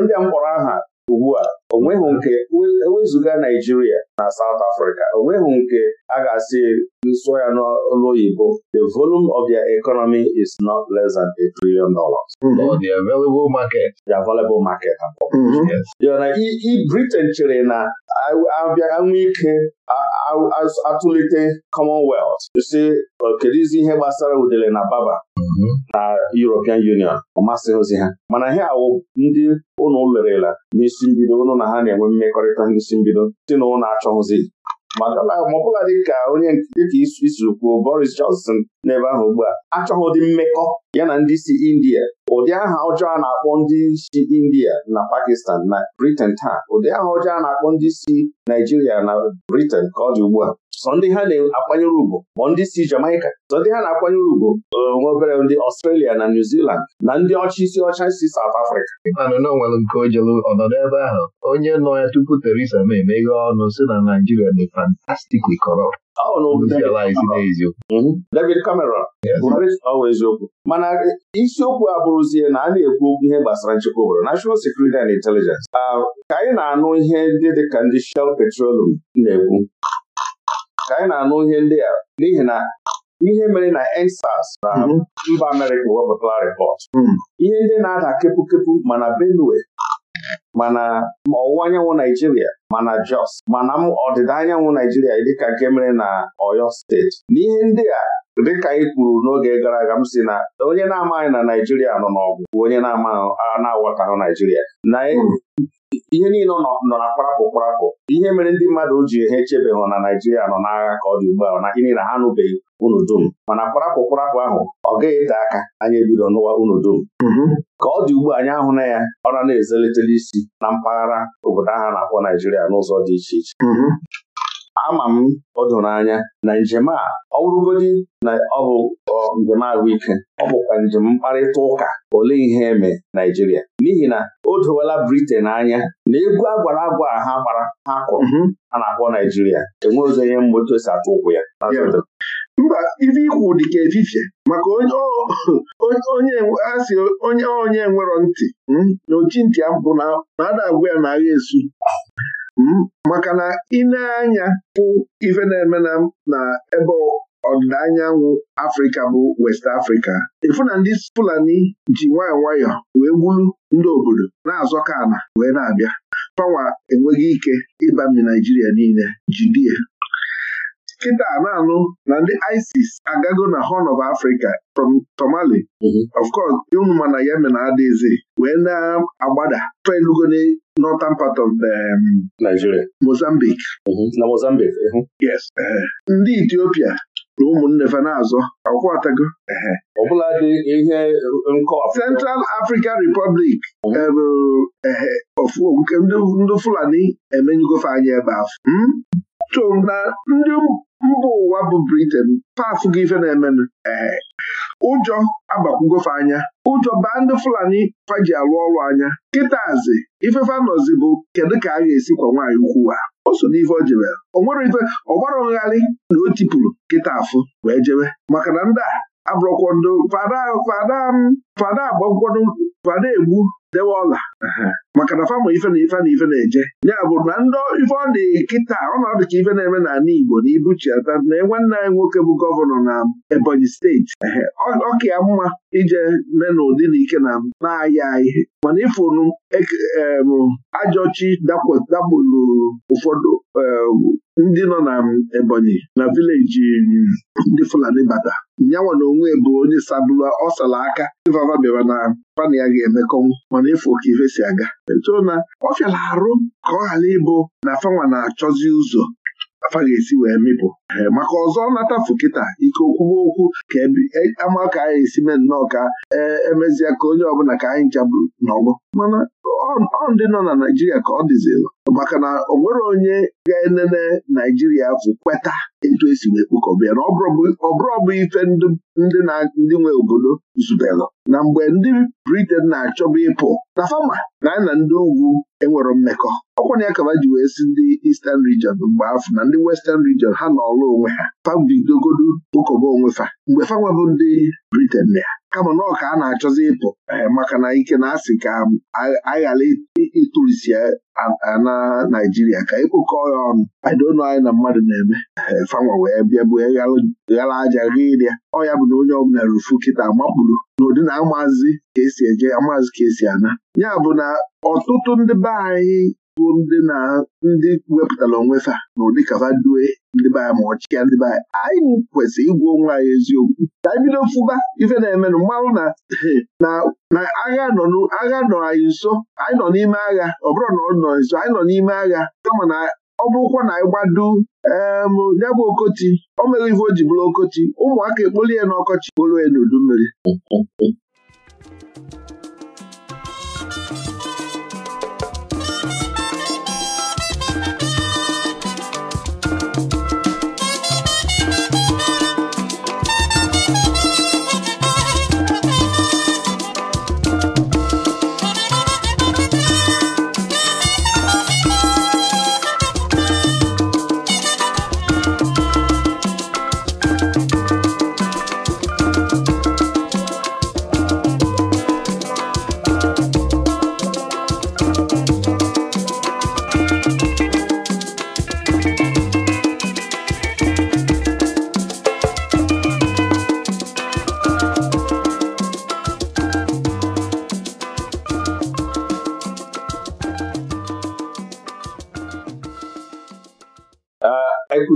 [SPEAKER 2] ndị a mkpọrọ aha ugbu a onweghị nke ewezuga Naijiria na South Africa onweghị nke a ga-asị nsụ ya n'olu oyibo the volume of their economy is not less than a trillion dollars. Mm-hmm. The available market. The available market. Mm-hmm. yana i Britain chere na abịa nwee ike atụlite Commonwealth si kedụ izi ihe gbasara udele na baba na European Union ọ ozi ha mana ha awụ ndị ụnụ lerela n'isi mbido ụnụ na ha na-enwe mmekọrịta n'isi mbido si na ụnụ achọghịzi dị dịka onye dịka isi kwuo Boris Johnson n'ebe ahụ ugbu a achọghị ụdị mmekọ ya na ndị si India ụdị aha ọjọọ a na-akpọ ndị si India na Pakistan na Britain taa ụdị aha ọjọọ a na-akpọ ndị si Naijiria na Britain ka ọ dị ugbu a sọ ndị ha na-akwanyere ugwu ndị si Jamaica sọ ndị ha na-akwanyere ugwu nwa obere ndị Australia na New Zealand na ndị ọcha isi ọcha si South Africa
[SPEAKER 1] ịmanụ nwere nke ojelu ọnọdụ ebe ahụ onye nọ ya tupu Theresa May emeghe ọnụ si na Naijiria dị fantastically kọrọ. Hmm? David Cameron
[SPEAKER 2] ọwa eziokwu mana isiokwu bụrụzie na a na-ekwu okwu ihe gbasara nchekwa obodo National Security and Intelligence ah, ka anyị na-anụ ihe ndị dị ka ndị Shell Petroleum na-ekwu ka anyị na-anụ ihe ndị a n'ihi na ihe mere na EndSARS na hmm. mba Amerịka wepụtara rịpọt hmm. ihe ndị na-ada kepụkepụ mana Benue mana ọwụwa anyanwụ Naijiria mana Jos mana m ọdịda anyanwụ Naijiria dịka nke mere na Oyo steeti n'ihe ndị a dịka anyị kwuru n'oge gara aga m si na onye na-amaghị na Naijiria nọ n'ọgụ bụ onye na-aghọtahụ Naijiria na e, hmm. ihe niile nọ na kparapụ kparapụ ihe mere ndị mmadụ ji ha echebeghị na Naijiria nọ n'agha ka ọ dị ugbu a na gịnị na ha anụbeghị unu dum mana kparapụ kparapụ ahụ ọ gaghị ete aka anyị ebido n'ụwa unu dum hmm. ka ọ dị ugbu a anyị ahụ na ya ọ na na isi na mpaghara obodo ahụ na-akpọ Naijiria n'ụzọ dị iche iche mm-hmm. ama m ọdụnanya anya na njem a ọ bụrụgodị na ọ bụ njem ahụike ọ bụkwa njem mkparịta ụka olee ihe eme Naijiria n'ihi na o dowela Britain anya na egwu agwara agwa ha gbara ha kụrụ mm-hmm. a na-akpọ Naijiria enwe onye
[SPEAKER 3] ihe otu osi atụ ụkwụ ya mba ife ikwu dị ka efifie maka onye asị onye onye nwerọ ntị hmm, na ochi ntị mpụ na ada agwa ya na agha esu hmm, maka na ịna-anya bụ ife na-eme na ebe ọdịda anyanwụ Afrịka bụ West Afrịka ịfụ na ndị Fulani ji nwayọọ nwayọọ wee gburu ndị obodo na azọ ana wee na-abịa fanwa enweghị ike ịbami Naijiria niile jidie kịta na-anụ na ndị ISIS agago na Horn of Africa from Somali mhm. of course ụmụma na Yemen adịghịzi wee na-agbada felugo na northern part of um, Nigeria Mozambique mhm. na Mozambique yes eh, ndị Ethiopia na ụmụnne fa na-azọ akwatago eh, eh. ọbụla dị ihe Central African Republic ebu mhm. ehe ndị Fulani emenyugofe anyị ebe ahụ hmm? chọrọ na ndị mba ụwa bụ Britain pafugo ife na-emenụ ee ụjọ agbakwugofe anya ụjọ baa ndị Fulani faji alụ ọrụ anya kịtazi ifefe nọzi bụ kedu ka a ga-esi kwa nwaanyị ukwu a o so n'ife o jebe o ife ọgbara ngharị na o tipụrụ kịta afụ wee jebe maka na ndị a abụrọkwado fada fada fada agbagwodo fada egbu dewe ọla maka na famụ ife na ife na ife na-eje ya bụ na ndị ife ọ dị kịta ọnọdụ ka ife na-eme n'ala Igbo na ibuchiata na nwanne anyị nwoke bụ gọvanọ na Ebonyi steeti ọka ya mma ije mee n'ụdị na ike na na-aya ihe mana ifunu ajọchi dakpụrụ ụfọdụ ndị nọ na Ebonyi na vileji ndị Fulani bata nyanwa na onwe bụ onye sabụla ọsala aka ịvava bịara na pana ya ga-emekọnwụ mana ịfụ ka ife si aga echoo na ọ fịara arụ ka ọ ghara ịbụ na afanwa na-achọzi ụzọ afa ga-esi wee mịpụ maka ọzọ nata kịta ike okwuwe okwu ka e, ama ka anyị esi mee nnọọ ka e, emezie ka onye ọbụla ka anyị nchabụ n'ọgbọ mana ọ ndị nọ na Naijiria ka ọ dịzilụ maka na o nwere onye ga-enene Naijiria afụ kweta etu esi wee kpụkọba na ọ bụrụ bụ ife ndị nwe obodo zubelụ na mgbe ndị Briten na-achọba ịpụ na fama na anyị na ndị ugwu enwere mmekọ ọkwa na ya kaba ji wee si ndị Eastern Region mgbe afọ na ndị Western Region ha nọ ọrụ onwe ha fabidogodu ụkọba onwe fa mgbe fanwa bụ ndị Briten na ya kama na ọka a na-achọzi ịpụ eh, maka na ike na asị ka aghara ịtụrisi eh, na Naijiria ka ịkpụkọ ya ọnụ aidono anyị na mmadụ na-eme eh, fanwa wee bịa bue ghara aja gha ịrịa ọ ya bụ na onye ọbụla rufu kịta makpuru n'ụdị na amazi ka esi eje amazi ka esi ana ya bụ na ọtụtụ ndị be anyị bụ ndị na ndị wepụtara onwe fa na ụdị kafa due ndị anyị ma ọchịchịa ndị be anyị kwesịrị onwe anyị eziokwu ka anyị bido fụba ife na-emenụ mmanwụ na na agha nọ agha nọ anyị nso anyị nọ n'ime agha ọ bụrụ na ọ nọ nso anyị nọ n'ime agha kama na ọ bụrụkwa na anyị gbado ya bụ okoti o mere ife o ji bụrụ okoti ụmụaka ekpolie n'ọkọchị ya n'udu mmiri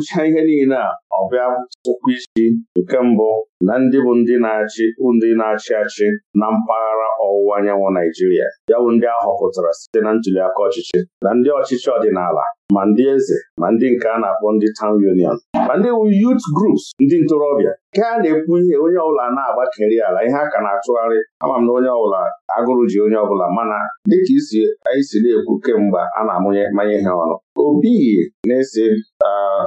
[SPEAKER 2] gụchaa ihe niile a ọ bịa ụkwụ isi nke mbụ na ndị bụ ndị na-achị ndị na-achị achị na mpaghara ọwụwa anyanwụ Naijiria ya bụ ndị ahọpụtara site na ntuliaka ọchịchị na ndị ọchịchị ọdịnala ma ndị eze ma ndị nke a na-akpọ ndị town union ma ndị youth groups ndị ntorobịa nke a na-ekwu ihe onye ọbụla na-agbakeri ala ihe a ka na-atụgharị ama m na onye ọbụla agụrụ ji onye ọbụla mana dịka isi anyị si na-ekwu kemgbe a na-amụnye mmanya ihe ọnụ obi na-esi ah,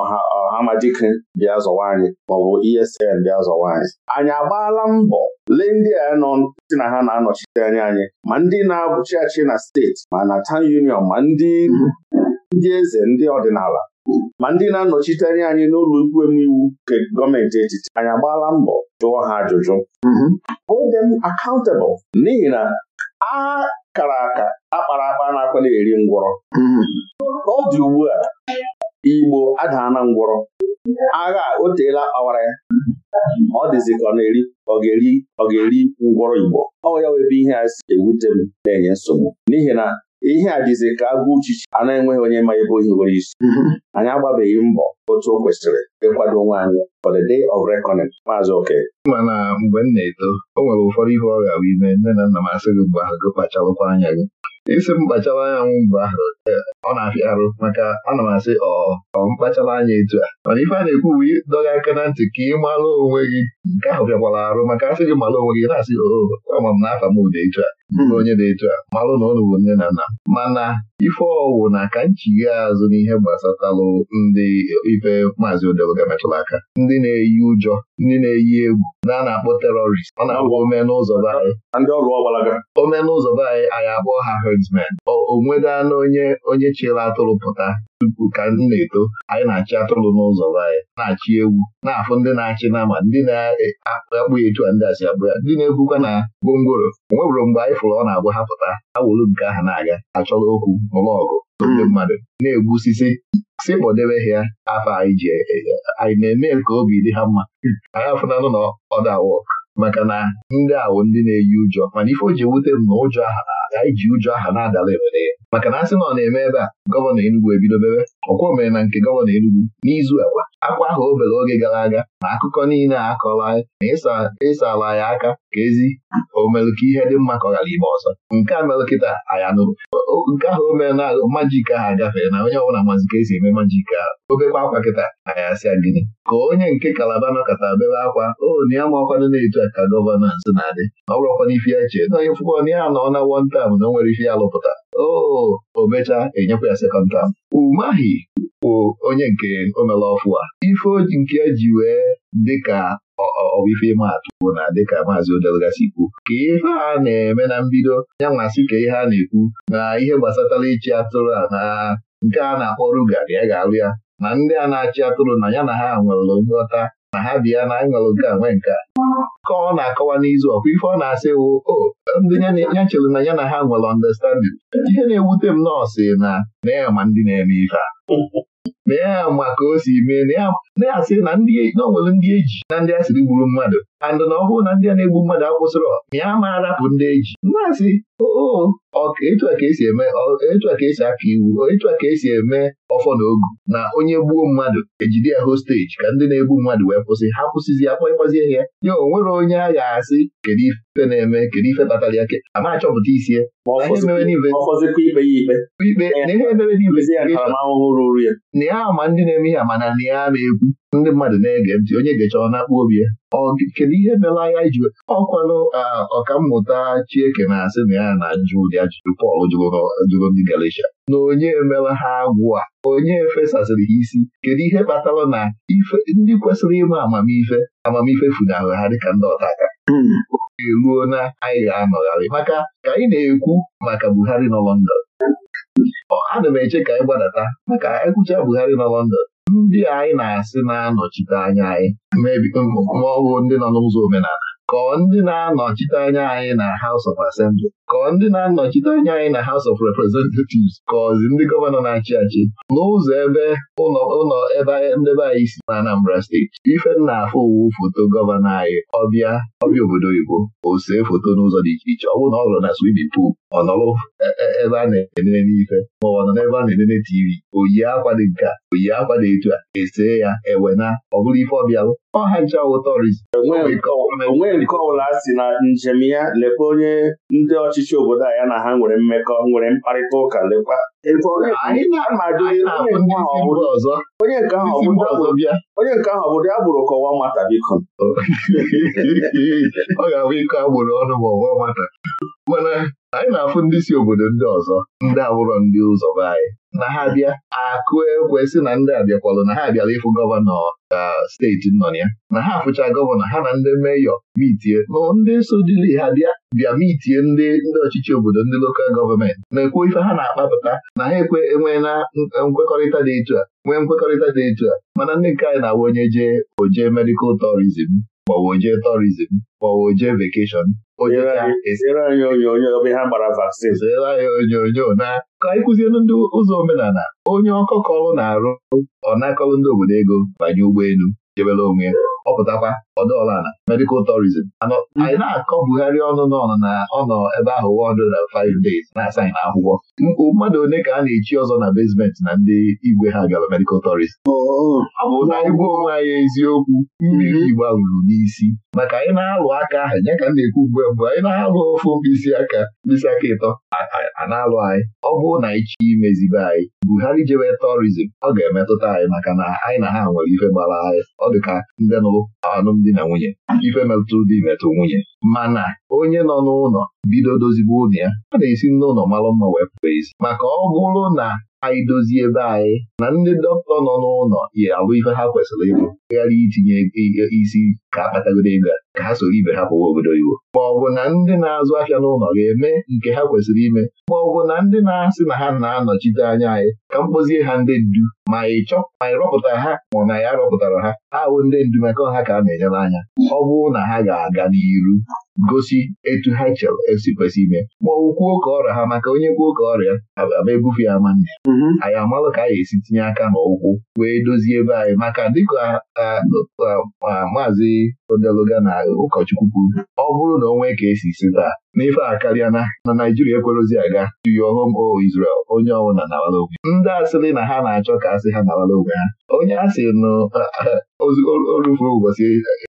[SPEAKER 2] ọha ọhamajike bịa zọwa anyị maọbụ ESN bịa zọwa anyị anyị agbaala mbọ lee ndị a nọ na ha na-anọchite anya anyị ma ndị na-abụchi achị na steeti ma na town union ma ndị ndị eze ndị ọdịnala ma ndị na-anọchite anya anyị n'ụlọ ikwu iwu nke gọọmenti etiti anyị agbaala mbọ jụọ ha ajụjụ hold them n'ihi na a kara aka akpara akpa na na eri ngwọrọ ọ dị ugbu a Igbo adaana ngwọrọ agha o teela ọwara ya ọ dịzị ka ọ na-eri ọ ga-eri ọ ga-eri ngwọrọ Igbo ọ ya webe ihe a si ewute m na-enye nsogbu n'ihi na ihe a dịzị ka agụ uchichi a na-enweghị onye ma ebe ohi nwere isi anyị agbabeghị mbọ otu o kwesịrị ịkwado onwe anyị for the day of reckoning maazị oke
[SPEAKER 1] mana mgbe m na-eto o nwere ụfọdụ ihe ọ ga-abụ ime nne na nna m asị gị mgbe ahụ gị kpachalụkwa anya gị isi m kpachawa anya nwụ mgbe ahụ e, ọ na-afịa arụ maka ana m asị ọ mkpachara anya etu a mana ife a na-ekwu bụ dọga aka na ntị ka ị mara onwe gị nke ahụ bịakwara arụ maka asị gị mara onwe gị na-asị ama m na-afa m dị etu a bụrụ onye dị etu a malụ na ọnụ bụ nne na nna mana ife ọwụ na ka nchighe azụ n'ihe gbasatalụ ndị ife maazị odeluga metụrụ aka ndị na-eyi ụjọ ndị na-eyi egwu na a na-akpọ terọrist ọ na omenụzọ be anyị omenụzọ be anyị anyị akpọ ha herdsmen o onye onye chịrị atụrụ pụta tupu ka m na-eto anyị na-achị atụrụ n'ụzọ anyị na-achị ewu na-afụ ndị na-achị nama ndị na-akpụ ya etu a ndị asị abụ ya ndị na-ekwukwa na gwongworo onwebụrụ mgbe anyị fụrụ ọ na-abụ ha pụta ha wuru nke aha na-aga achọrọ okwu n'ụlọ ọgụ ndị hmm. mmadụ na-egbusisi si kpọdebe ha ya afọ anyị ji e, e, anyị na-eme ka obi dị ha mma hmm. anyị afụnanụ na ọdawọ maka na ndị awụ ndị na-eyi ụjọ mana ife o ji ewute m ụjọ aha na anyị ji ụjọ aha na-adala ewere ya maka na asị na ọ na-eme ebe a gọvanọ Enugwu ebido mebe ọkwọ mere na nke gọvanọ Enugwu. n'izu akwa akwa ahụ obere oge gara aga na akụkọ niile a kọrọ anyị na ala ya aka ka ezi omelụ ka ihe dị mma kọghara ime ọzọ nke a mere kịta anyị anụrụ nke ahụ o mere na majik ahụ agafere na onye ọbụla mazi ka esi eme majik ahụ obekwa akwa kịta anyị asị gịnị ka onye nke kalaba nọkọta bebe akwa o na ya ma ọkwado na-etu ka gọvanọ nso na-adị ọ bụrụkwana ife ya chee na onye fụkọ na ya nọ na wọntam na o nwere ife ya lụpụta o omecha enyekwa ya sekọnd tam umahi bụ onye nke omela ọfụ a ife nke e ji wee dịka ọwife ịma atụ na dịka maazị odelgasi kwu ka ihe a na-eme na mbido ya nwasị ka ihe a na-ekwu na ihe gbasatara ịchị atụrụ a na nke a na-akpọ ruga ya ga-alụ ya na ndị a na-achị atụrụ na ya na ha nwere nghọta ma ha bi ya na aṅụrụ nke a nwee nke a ka ọ na-akọwa n'izu ọkwa ife ọ na-asị wụ o ndị ya chere na ya na ha nwere ọndestanding ihe na-ewute m nọọsụ na na ya ma ndị na-eme ife a na ya ma ka o si mee na ya asị na o ndị eji na ndị asịrị gburu mmadụ andị na ọ bụrụ na ndị a na-egbu mmadụ akwụsịrọ na ya ma arapụ ndị eji na-asị etu a ka esi eme etu a ka esi aka iwu etu a ka esi eme ọfọ na ogu na onye gbuo mmadụ ejide ya hosteji ka ndị na-egbu mmadụ wee kwụsị ha kwụsịzi ya kpọịkwazie ya ya onwere onye a ga-asị kedu ife na-eme kedu ife kpatara ya ke ama achọpụta isi ya ikpe na ihe emere n'investigeshọn na ya ama ndị na-eme ihe ama na ya ama ekwu ndị mmadụ na-ege ntị onye ga-eche na-akpụ obi ya kedu ihe mela ya iji ọkwanụ ọkammụta Chieke na-asị na ya na-ajụ ụdị ajụjụ Pọl jụrụ ndị Galatia na onye emela ha agwụ a onye fesasịrị ha isi kedu ihe kpatara na ndị kwesịrị ịma amamife amamife funahụ ha dịka ndị ọtaka hmm. eruo na anyị ga-anọgharị maka ka anyị na-ekwu maka Buhari nọ London ana m eche ka anyị gbadata maka ekwucha Buhari nọ London ndị anyị na-asị na-anọchite anya anyị um, ma ọ bụ ndị nọ n'ụzọ omenala kọọ ndị na-anọchite anya anyị na House of Assembly kọọ ndị na-anọchite anya anyị na House of Representatives kọọzi ndị gọvanọ na-achị achị n'ụzọ ebe ụlọ ebe ndebe anyị si na Anambra steeti ife nna afọ owu foto gọvanọ anyị ọbịa ọbịa obodo oyibo o see foto n'ụzọ dị iche iche ọ bụrụ na ọ hụrụ na swimming pool ọ e, e, ebe a na-enene ife maọbụ ọ nọ n'ebe a na-enene tivi oyi akwa dị nke a oyi akwa dị etu a esee ya ewe na ọ bụrụ ife ọbịalụ ọha ncha wụtọrizi onwee
[SPEAKER 2] nke ọbụla si na njem ya lekwa onye ndị ọchịchị obodo a ya na ha nwere mmekọ nwere mkparịta ụka lekwa
[SPEAKER 3] onye nke ahụ ọ bụ ya bụrụ kọwa nwata biko
[SPEAKER 1] ọ ga-abụ iko agbụrụ ọnụ ma ọ mana anyị na-afụ ndị si obodo ndị ọzọ ndị abụrọ ndị ụzọ be anyị na ha bịa akụ ekwe sị na ndị abịakwalụ na ha bịara ịfụ gọvanọ ka steeti nọ ya na ha afụcha gọvanọ ha na ndị meyọ mitie na ndị so dili ha bịa bịa mitie ndị ndị ọchịchị obodo ndị lokal gọọmenti na-ekwu ife ha na-akpapụta na ha ekwe enwe na e, nkwekọrịta dị etu a nwee nkwekọrịta dị etu a mana ndị nke anyị na-awụ onye jee oje medikal tourism maọbụ oje tourism vekeshọn Zere anyị onyonyo anyị onyonyo na ka anyị ndị ụzọ omenala onye ọkọkọrụ na-arụ ọ na ndị obodo ego banye ụgbọelu jebere onwe ọ pụtakwa ọdụ na medical tourism anyị na-akọbugharị ọnụ n'ọnụ na ọnọ ebe ahụ 105 days na-asaghị na akwụkwọ mmadụ one ka a na-echi ọzọ na basement na ndị igwe ha gara medical tourism ọ bụ na igwe onwe anyị eziokwu mmiri mhm. gbaruru n'isi maka anyị na-alụ aka ahụ ya ka m na-ekwu mgbe mgbe anyị na-alụ ofu mkpịsị aka mkpịsị aka ịtọ a na-alụ anyị ọ bụrụ na anyị chi imezibe anyị Buhari jewe tourism ọ ga-emetụta anyị maka na anyị na ha nwere ife gbara anyị ọ dị ka ndị nụrụ anụmdị di na nwunye ife metụrụ di metụ nwunye mana onye nọ n'ụlọ bido dozibe ụlọ ya a na-esi n'ụlọ mara mma wee pụọ ezi maka ọ bụrụ na anyị dozie ebe anyị na ndị dọkịta nọ n'ụlọ ya alụ ife ha kwesịrị ịbụ ghara itinye isi ka akpatagoro ego ka ha soro ibe ha pụwa obodo Iwo! ma ọ bụ na ndị na-azụ ahịa n'ụlọ ga-eme nke ha kwesịrị ime ma ọ bụ na ndị na-asị na ha na-anọchite anya anyị ka m kpozie ha ndị ndu ma ị chọ ma ị rọpụta ha ma na ya rọpụtara ha ha bụ ndị ndu maka ha ka a na-enyere anya ọ bụrụ na ha ga-aga n'iru gosi etu ha chere esi kwesị ime ma ọ kwuo ka ọrịa ha maka onye kwuo ka ọrịa aba ebufe ya ma nne anyị amalụ ka anyị esi tinye aka n'ụkwụ wee dozie ebe anyị maka dịka maazị odeluga na ụkọchukwu kwuru ọ bụrụ na o nwee ka esi si taa n'ife a karịa na na Naijiria ekwerozi aga to your o oh Israel onye ọbụla nawara onwe ndị asịrị na ha na-achọ ka asị ha nawara onwe ha onye asị nụ orufuru ụbọchị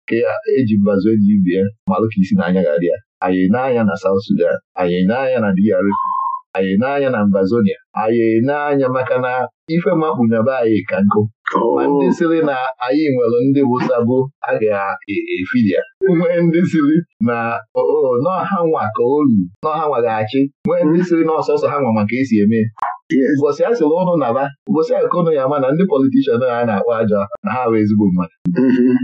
[SPEAKER 1] ka eji mbazụ enyi bie malụ ka isi na anya ga ya anyị na na South Sudan anyị na-anya na anyị n'anya na Mbazonia anyị n'anya maka na ife makpu na anyị ka nkụ oh. ma ndị siri na anyị nwere ndị bụsabụ a ga-efidia nwee ndị siri na oh, oh, n'ọha nwa ka olu n'ọha nwa ga-achị nwee ndị siri na ọsọsọ ha nwa maka esi eme ụbọchị a sịrị ụnụ naba ụbọchị akụnụ ya ama na ndị politishan a na-akpọ aja na ha bụ ezigbo mmadụ mm-hmm.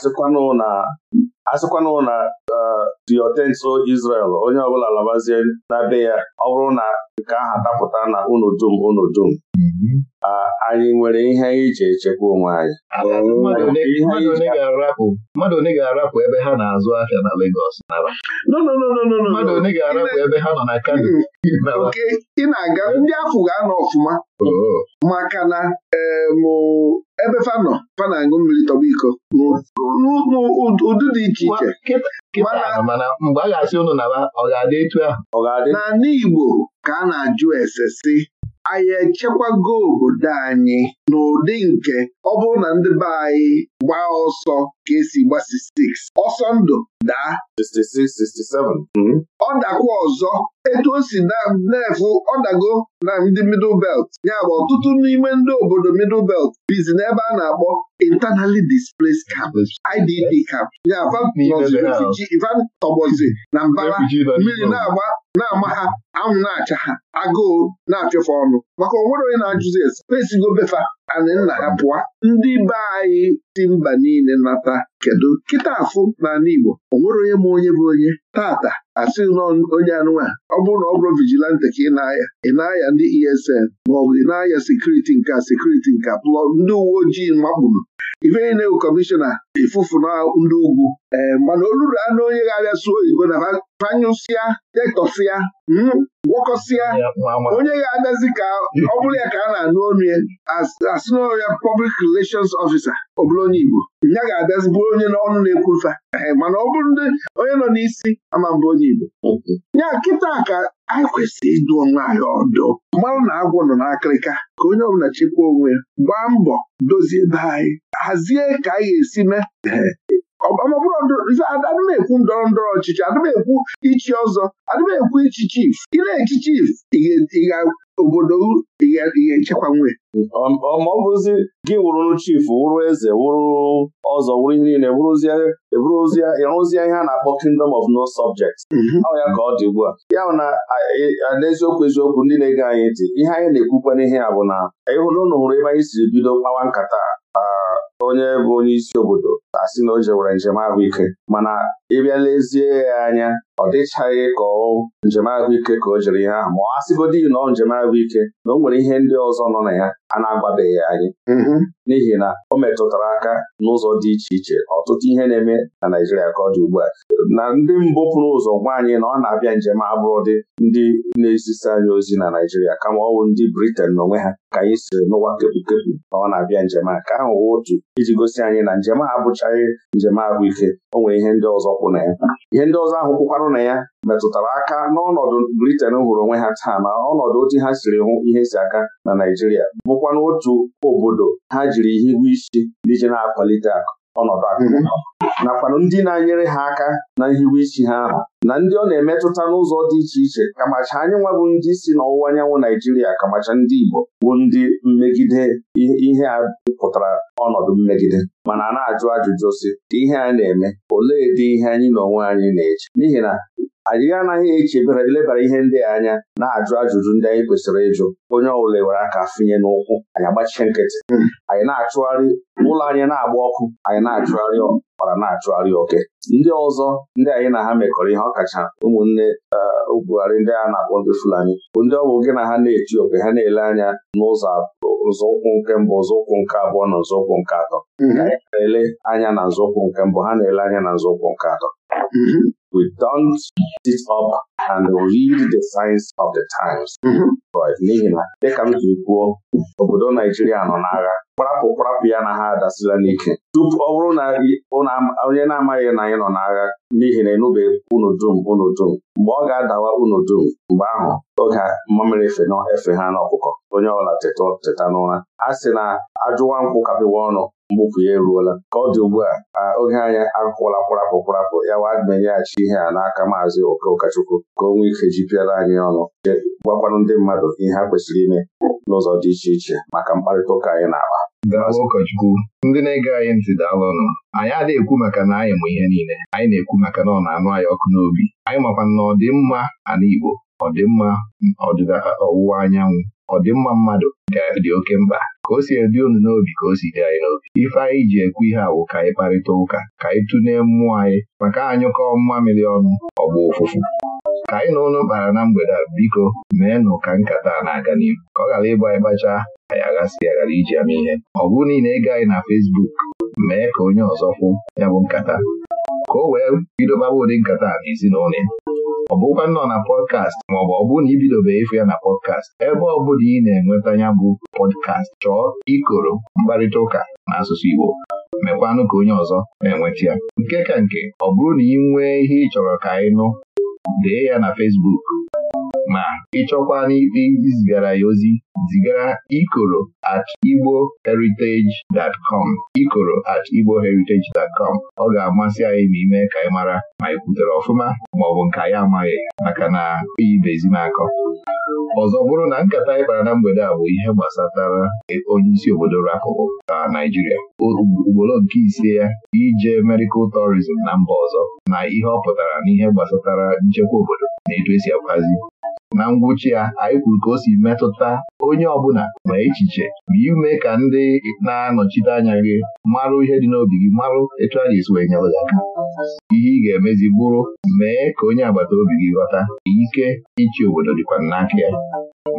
[SPEAKER 2] asịkwanụ na asịkwanụ na uh, Israel onye ọbụla labazie na be ya ọ bụrụ na ka aha dapụta na unu dum unu dum ah, anyị nwere ihe anyị ji echekwa onwe anyị
[SPEAKER 1] mmadụ one ga-arapụ ebe ha na-azụ ahịa na Lagos
[SPEAKER 3] mmadụ one
[SPEAKER 1] ga-arapụ ebe ha nọ na Kano oke
[SPEAKER 3] ị na-aga ndị afụ ga-anọ ọfụma maka na eh, ebe fanọ. nọ na-aṅụ mmiri tọba iko n'ụdị dị iche iche
[SPEAKER 1] mana mgbe a ga-asị ụnụ na
[SPEAKER 3] ọ ga-adị etu ahụ na n'Igbo ka a na-ajụ ese si anyị echekwago obodo anyị n'ụdị nke ọ bụrụ na ndị be anyị gbaa ọsọ ka esi gbasi stiks ọsọ ndụ daa 66-67 ọ dakwa ọzọ etu o si na-efu ọ dago na ndị middle belt ya bụ ọtụtụ n'ime ndị obodo middle belt bizi n'ebe a na-akpọ internally displaced camps IDP camps ya tọbọzi na mbara mmiri na-agba na-ama ha anwụ na-acha ha agụụ na-achụfe ọnụ maka onwere onye na-ajụzi spesigo befa anị nna ha pụọ ndị be anyị si mba niile nata kedu kịta afụ n'ala Igbo o nwere onye ma onye bụ onye tata asị nọ onye anụnwa ọ bụrụ na ọ bụrụ vigilante ka ị na-aya ị na-aya ndị ESN maọbụ ị na-aya sekuriti nka sekuriti nka plọ ndị uwe ojii makpuru ife na bụ kọmishọna ifufu na ndị ugwu ee eh, mana oluru anụ onye ga-abịa sụọ oyibo na fanyụsịa detọsịa hmm, gwọkọsịa onye ga-abịazi ka ọ bụrụ ya ka a na-anụ ọnụ ya asị ya pọblik relations ọfisa ọbụla onye Igbo ya ga abịazibụ onye n'ọnụ na-ekwufa mana ọ bụrụ ndị onye nọ n'isi ama onye Igbo ya nkịta ka anyị kwesịrị ịdụ onwe anyị ọdụ mmanụ na agwọ nọ n'akịrịka ka onye ọbụla chekwa onwe ya gbaa mbọ dozie be anyị hazie ka anyị ga-esi mee adịm ekwu ndọrọ ndọrọ ọchịchị adịmekwu ekwu ichi ọzọ adịmekwu ekwu ichi chief ịna na-echi chief obodo ị ga-echekwa nwe ma ọ bụzi gị wụrụ chief wụrụ eze wụrụ ọzọ
[SPEAKER 2] wụrụ ihe niile ịrụzie ihe a na-akpọ kingdom of no subjects mhm. ọ ya ka ọ dị ugbu a ya na n'eziokwu eziokwu ndị na-ege anyị dị, ihe anyị na-ekwukwa n'ihe a bụ na ịhụrụ hụrụ ebe anyị siri bido kpawa nkata onye bụ onye isi obodo asị na o jewere njem ahụike mana ịbịa lezie ya anya ọ dịchaghị ka ọ njem ahụike ka o jere ihe ahụ ma ọ asịgodi na ọ njem ahụike na o nwere ihe ndị ọzọ nọ na ya a na-agwabeghị anyị mm-hmm. n'ihi na o metụtara aka n'ụzọ dị iche iche ọtụtụ ihe na-eme na Naijiria ka ọ dị ugbu a na ndị mbụ pụrụ ụzọ gwa anyị na ọ na-abịa njem abụrụ dị ndị na-ezisa anyị ozi na Naijiria kama ọ bụ ndị Briten n'onwe ha ka anyị siri n'ụwa kepụkepụ na ọ na-abịa njem a ka ahụ otu iji gosi anyị na njem abụchaghị njem ahụike o nwere ihe ndị ọzọ kwụ na ya ihe ndị ọzọ ahụ kwụkwarụ na ya metụtara aka n'ọnọdụ Briten hụrụ onwe ha taa na ọnọdụ otu ha siri hụ ihe si aka na naijiria bụkwa n'otu obodo ha ji jiri ihe ihu isi nije na-akwalite akụ ọnọdụ akụ mhm. nakwanụ ndị na-enyere ha aka na nhiwe isi ha ahụ na ndị ọ na-emetụta n'ụzọ dị iche iche kamacha anyị nwebụ ndị si n'ọwụwa anyanwụ Naijiria kamacha ndị Igbo bụ ndị mmegide ihe a pụtara ọnọdụ mmegide mana a na-ajụ ajụjụ si ihe a na-eme olee dị ihe anyị na onwe anyị na-eche n'ihi na anyị anaghị echebere ilebara ihe ndị anya na-ajụ ajụjụ ndị anyị kwesịrị ịjụ onye ọbụla were aka finye n'ụkwụ anyị agbachie nkịtị hmm. anyị na-achụgharị ụlọ anyị na-agba ọkụ anyị na-achụgharị ọkpara na-achụgharị oke ndị ọzọ ndị anyị na ha mekọrọ ihe ọkacha ụmụnne okwugharị eh, ndị a na-akpọ ndị Fulani bụ ndị ọ gị na ha na-eti oke ha na-ele anya n'ụzọ nzọụkwụ nke mbụ nzọụkwụ nke abụọ na nzọụkwụ nke atọ hmm. ka na-ele anya na nzọụkwụ nke mbụ ha na-ele anya na nzọụkwụ nke atọ Mm-hmm. We don't sit up and read the signs of the times. But n'ihi na dịka m jiri kwuo obodo Naijiria nọ n'agha kparapụ kparapụ ya na ha adasila n'ike tupu ọ bụrụ na onye na-amaghị na anyị nọ n'agha n'ihi na enubeghị unu dum unu dum mgbe ọ ga-adawa unu dum mgbe ahụ oge mmamịrị efe na efe ha n'ọkụkọ onye ọbụla teta n'ụra a sị na ajụwa nkwụ kapịwa ọnụ mbufu ya eruola ka ọ dị ugbu a oge anyị akwụkwọla kwarapụ kwarapụ ya wadmenyeghachi ihe a n'aka maazị oke ụkọchukwu ka o nwee ike jipịara anyị ọnụ gwakwanụ ndị mmadụ ihe ha kwesịrị ime n'ụzọ dị
[SPEAKER 1] iche iche maka mkparịta ụka anyị na-akpa daalụ ụkọchukwu ndị na-ege anyị ntị daalụ ọnụ anyị adịghị ekwu maka na anyị mụ ihe niile anyị na-ekwu maka na ọ na-anụ anyị ọkụ n'obi anyị makwa na ọdịmma ala Igbo ọdịmma ọdịda ọwụwa anyanwụ ọdịmma mmadụ dị oke mkpa ka o si edị unu n'obi ka o si dị anyị n'obi ife anyị ji ekwu ihe awụ ka anyị kparịta ụka ka anyị tụnee mmụọ anyị maka anyụkọ mmiri ọnụ bụ ụfụfụ ka anyị na ụlọ kpara na mgbede a biko meenụ ka nkata a na-aga n'ihu ka ọ ghara ịbụ anyị kpachaa anyị aghasị ya ghara iji ama ihe ọ bụrụ niile ego anyị na Fesbuk mee ka onye ọzọ kwụ ya bụ nkata ka o wee bido gbawa ụdị nkata a n'ezinụlọ ya ọ bụkwa nọ na pọdkast maọbụ ọ bụ na ibidobeghị ịfụ ya na pọdkast ebe ọ bụla ị na-enweta ya bụ pọdkast chọọ ikoro mkparịta ụka na asụsụ Igbo mekwanụ ka onye ọzọ na-enweta ya nke ka nke ọ bụrụ na ị nwee ihe ị chọrọ ka ị nụ dee ya na fesbuk. ma ịchọkwa izigara ya ozi zigara ikoro at igbo heritage com ikoro at igbo heritage com ọ ga-amasị anyị ma ime ka anyị mara ma ị kwutere ọfụma maọbụ nke anyị amaghị maka na oyibezi m ọzọ bụrụ na nkata anyị na mgbede a bụ ihe gbasatara onye isi obodo rapụrụ na Naijiria ugboro nke ise ya ije medical tourism na mba ọzọ na ihe ọ pụtara na ihe gbasatara nchekwa obodo na etu esi akwazi na ngwụcha ya anyị kwuru ka o si metụta onye ọbụla ma echiche ma ime ka ndị na-anọchite anya gị marụ ihe dị n'obi gị marụ etu a ga-esi wee nyere gị aka ihe ị ga-emezi bụrụ mee ka onye agbata obi gị ghọta ike ịchị obodo dịkwa n'aka ya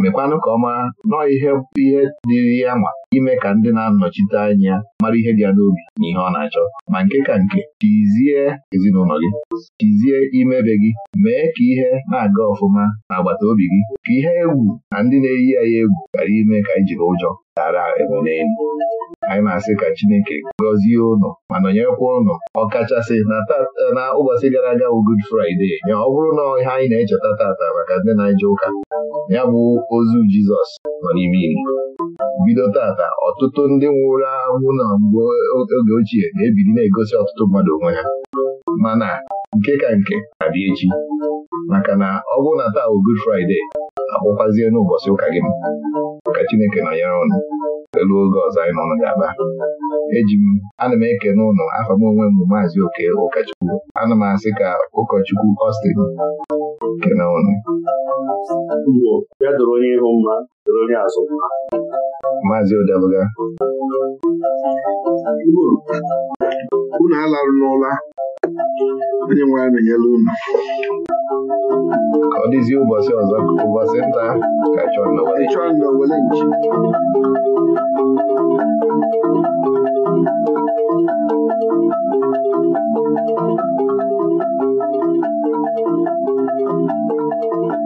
[SPEAKER 1] mekwanụ ka ọma nọọ ihe ihe dịrị ya ma ime ka ndị na-anọchite anya mara ihe dị ya n'obi na ihe ọ na-achọ ma nke ka nke tizie ezinụlọ gị tizie imebe gị mee ka ihe na-aga ọfụma na agbata obi gị ka ihe egwu na ndị na-eyi ya egwu ghara ime ka anyị jiri ụjọ tara ebonelu anyị na-asị ka Chineke gọzie ụnụ ma nọnyekwa ụnụ ọkachasị na ụbọchị gara aga bụ Good Friday ya ọ bụrụ na ihe anyị na-echeta tata maka ndị na-eje ụka ya bụ ozu Jizọs nọ n'ime iri bido tata ọtụtụ ndị nwụrụ anwụ na mgbe oge ochie na-ebiri na-egosi ọtụtụ mmadụ onwe ha mana nke ka nke abịa echi maka na ọ bụrụ na taa bụ Good Friday akpọkwazie n'ụbọchị ụka gị ka Chineke nọnyere ụnụ elu oge ọzọ anyị nọ ga-aba eji m ana m ekene n'ụlọ afọ m onwe m bụ maazị oke ụkọchukwu ana m asị ka ụkọchukwu doro kene ụnụ
[SPEAKER 3] maazị odeluga unu alarụla onye nwe ya menyela unu ọ dịzi ụbọchị ọzọ ụbọchị nta ka chọọ na wele nchi
[SPEAKER 4] Thank you.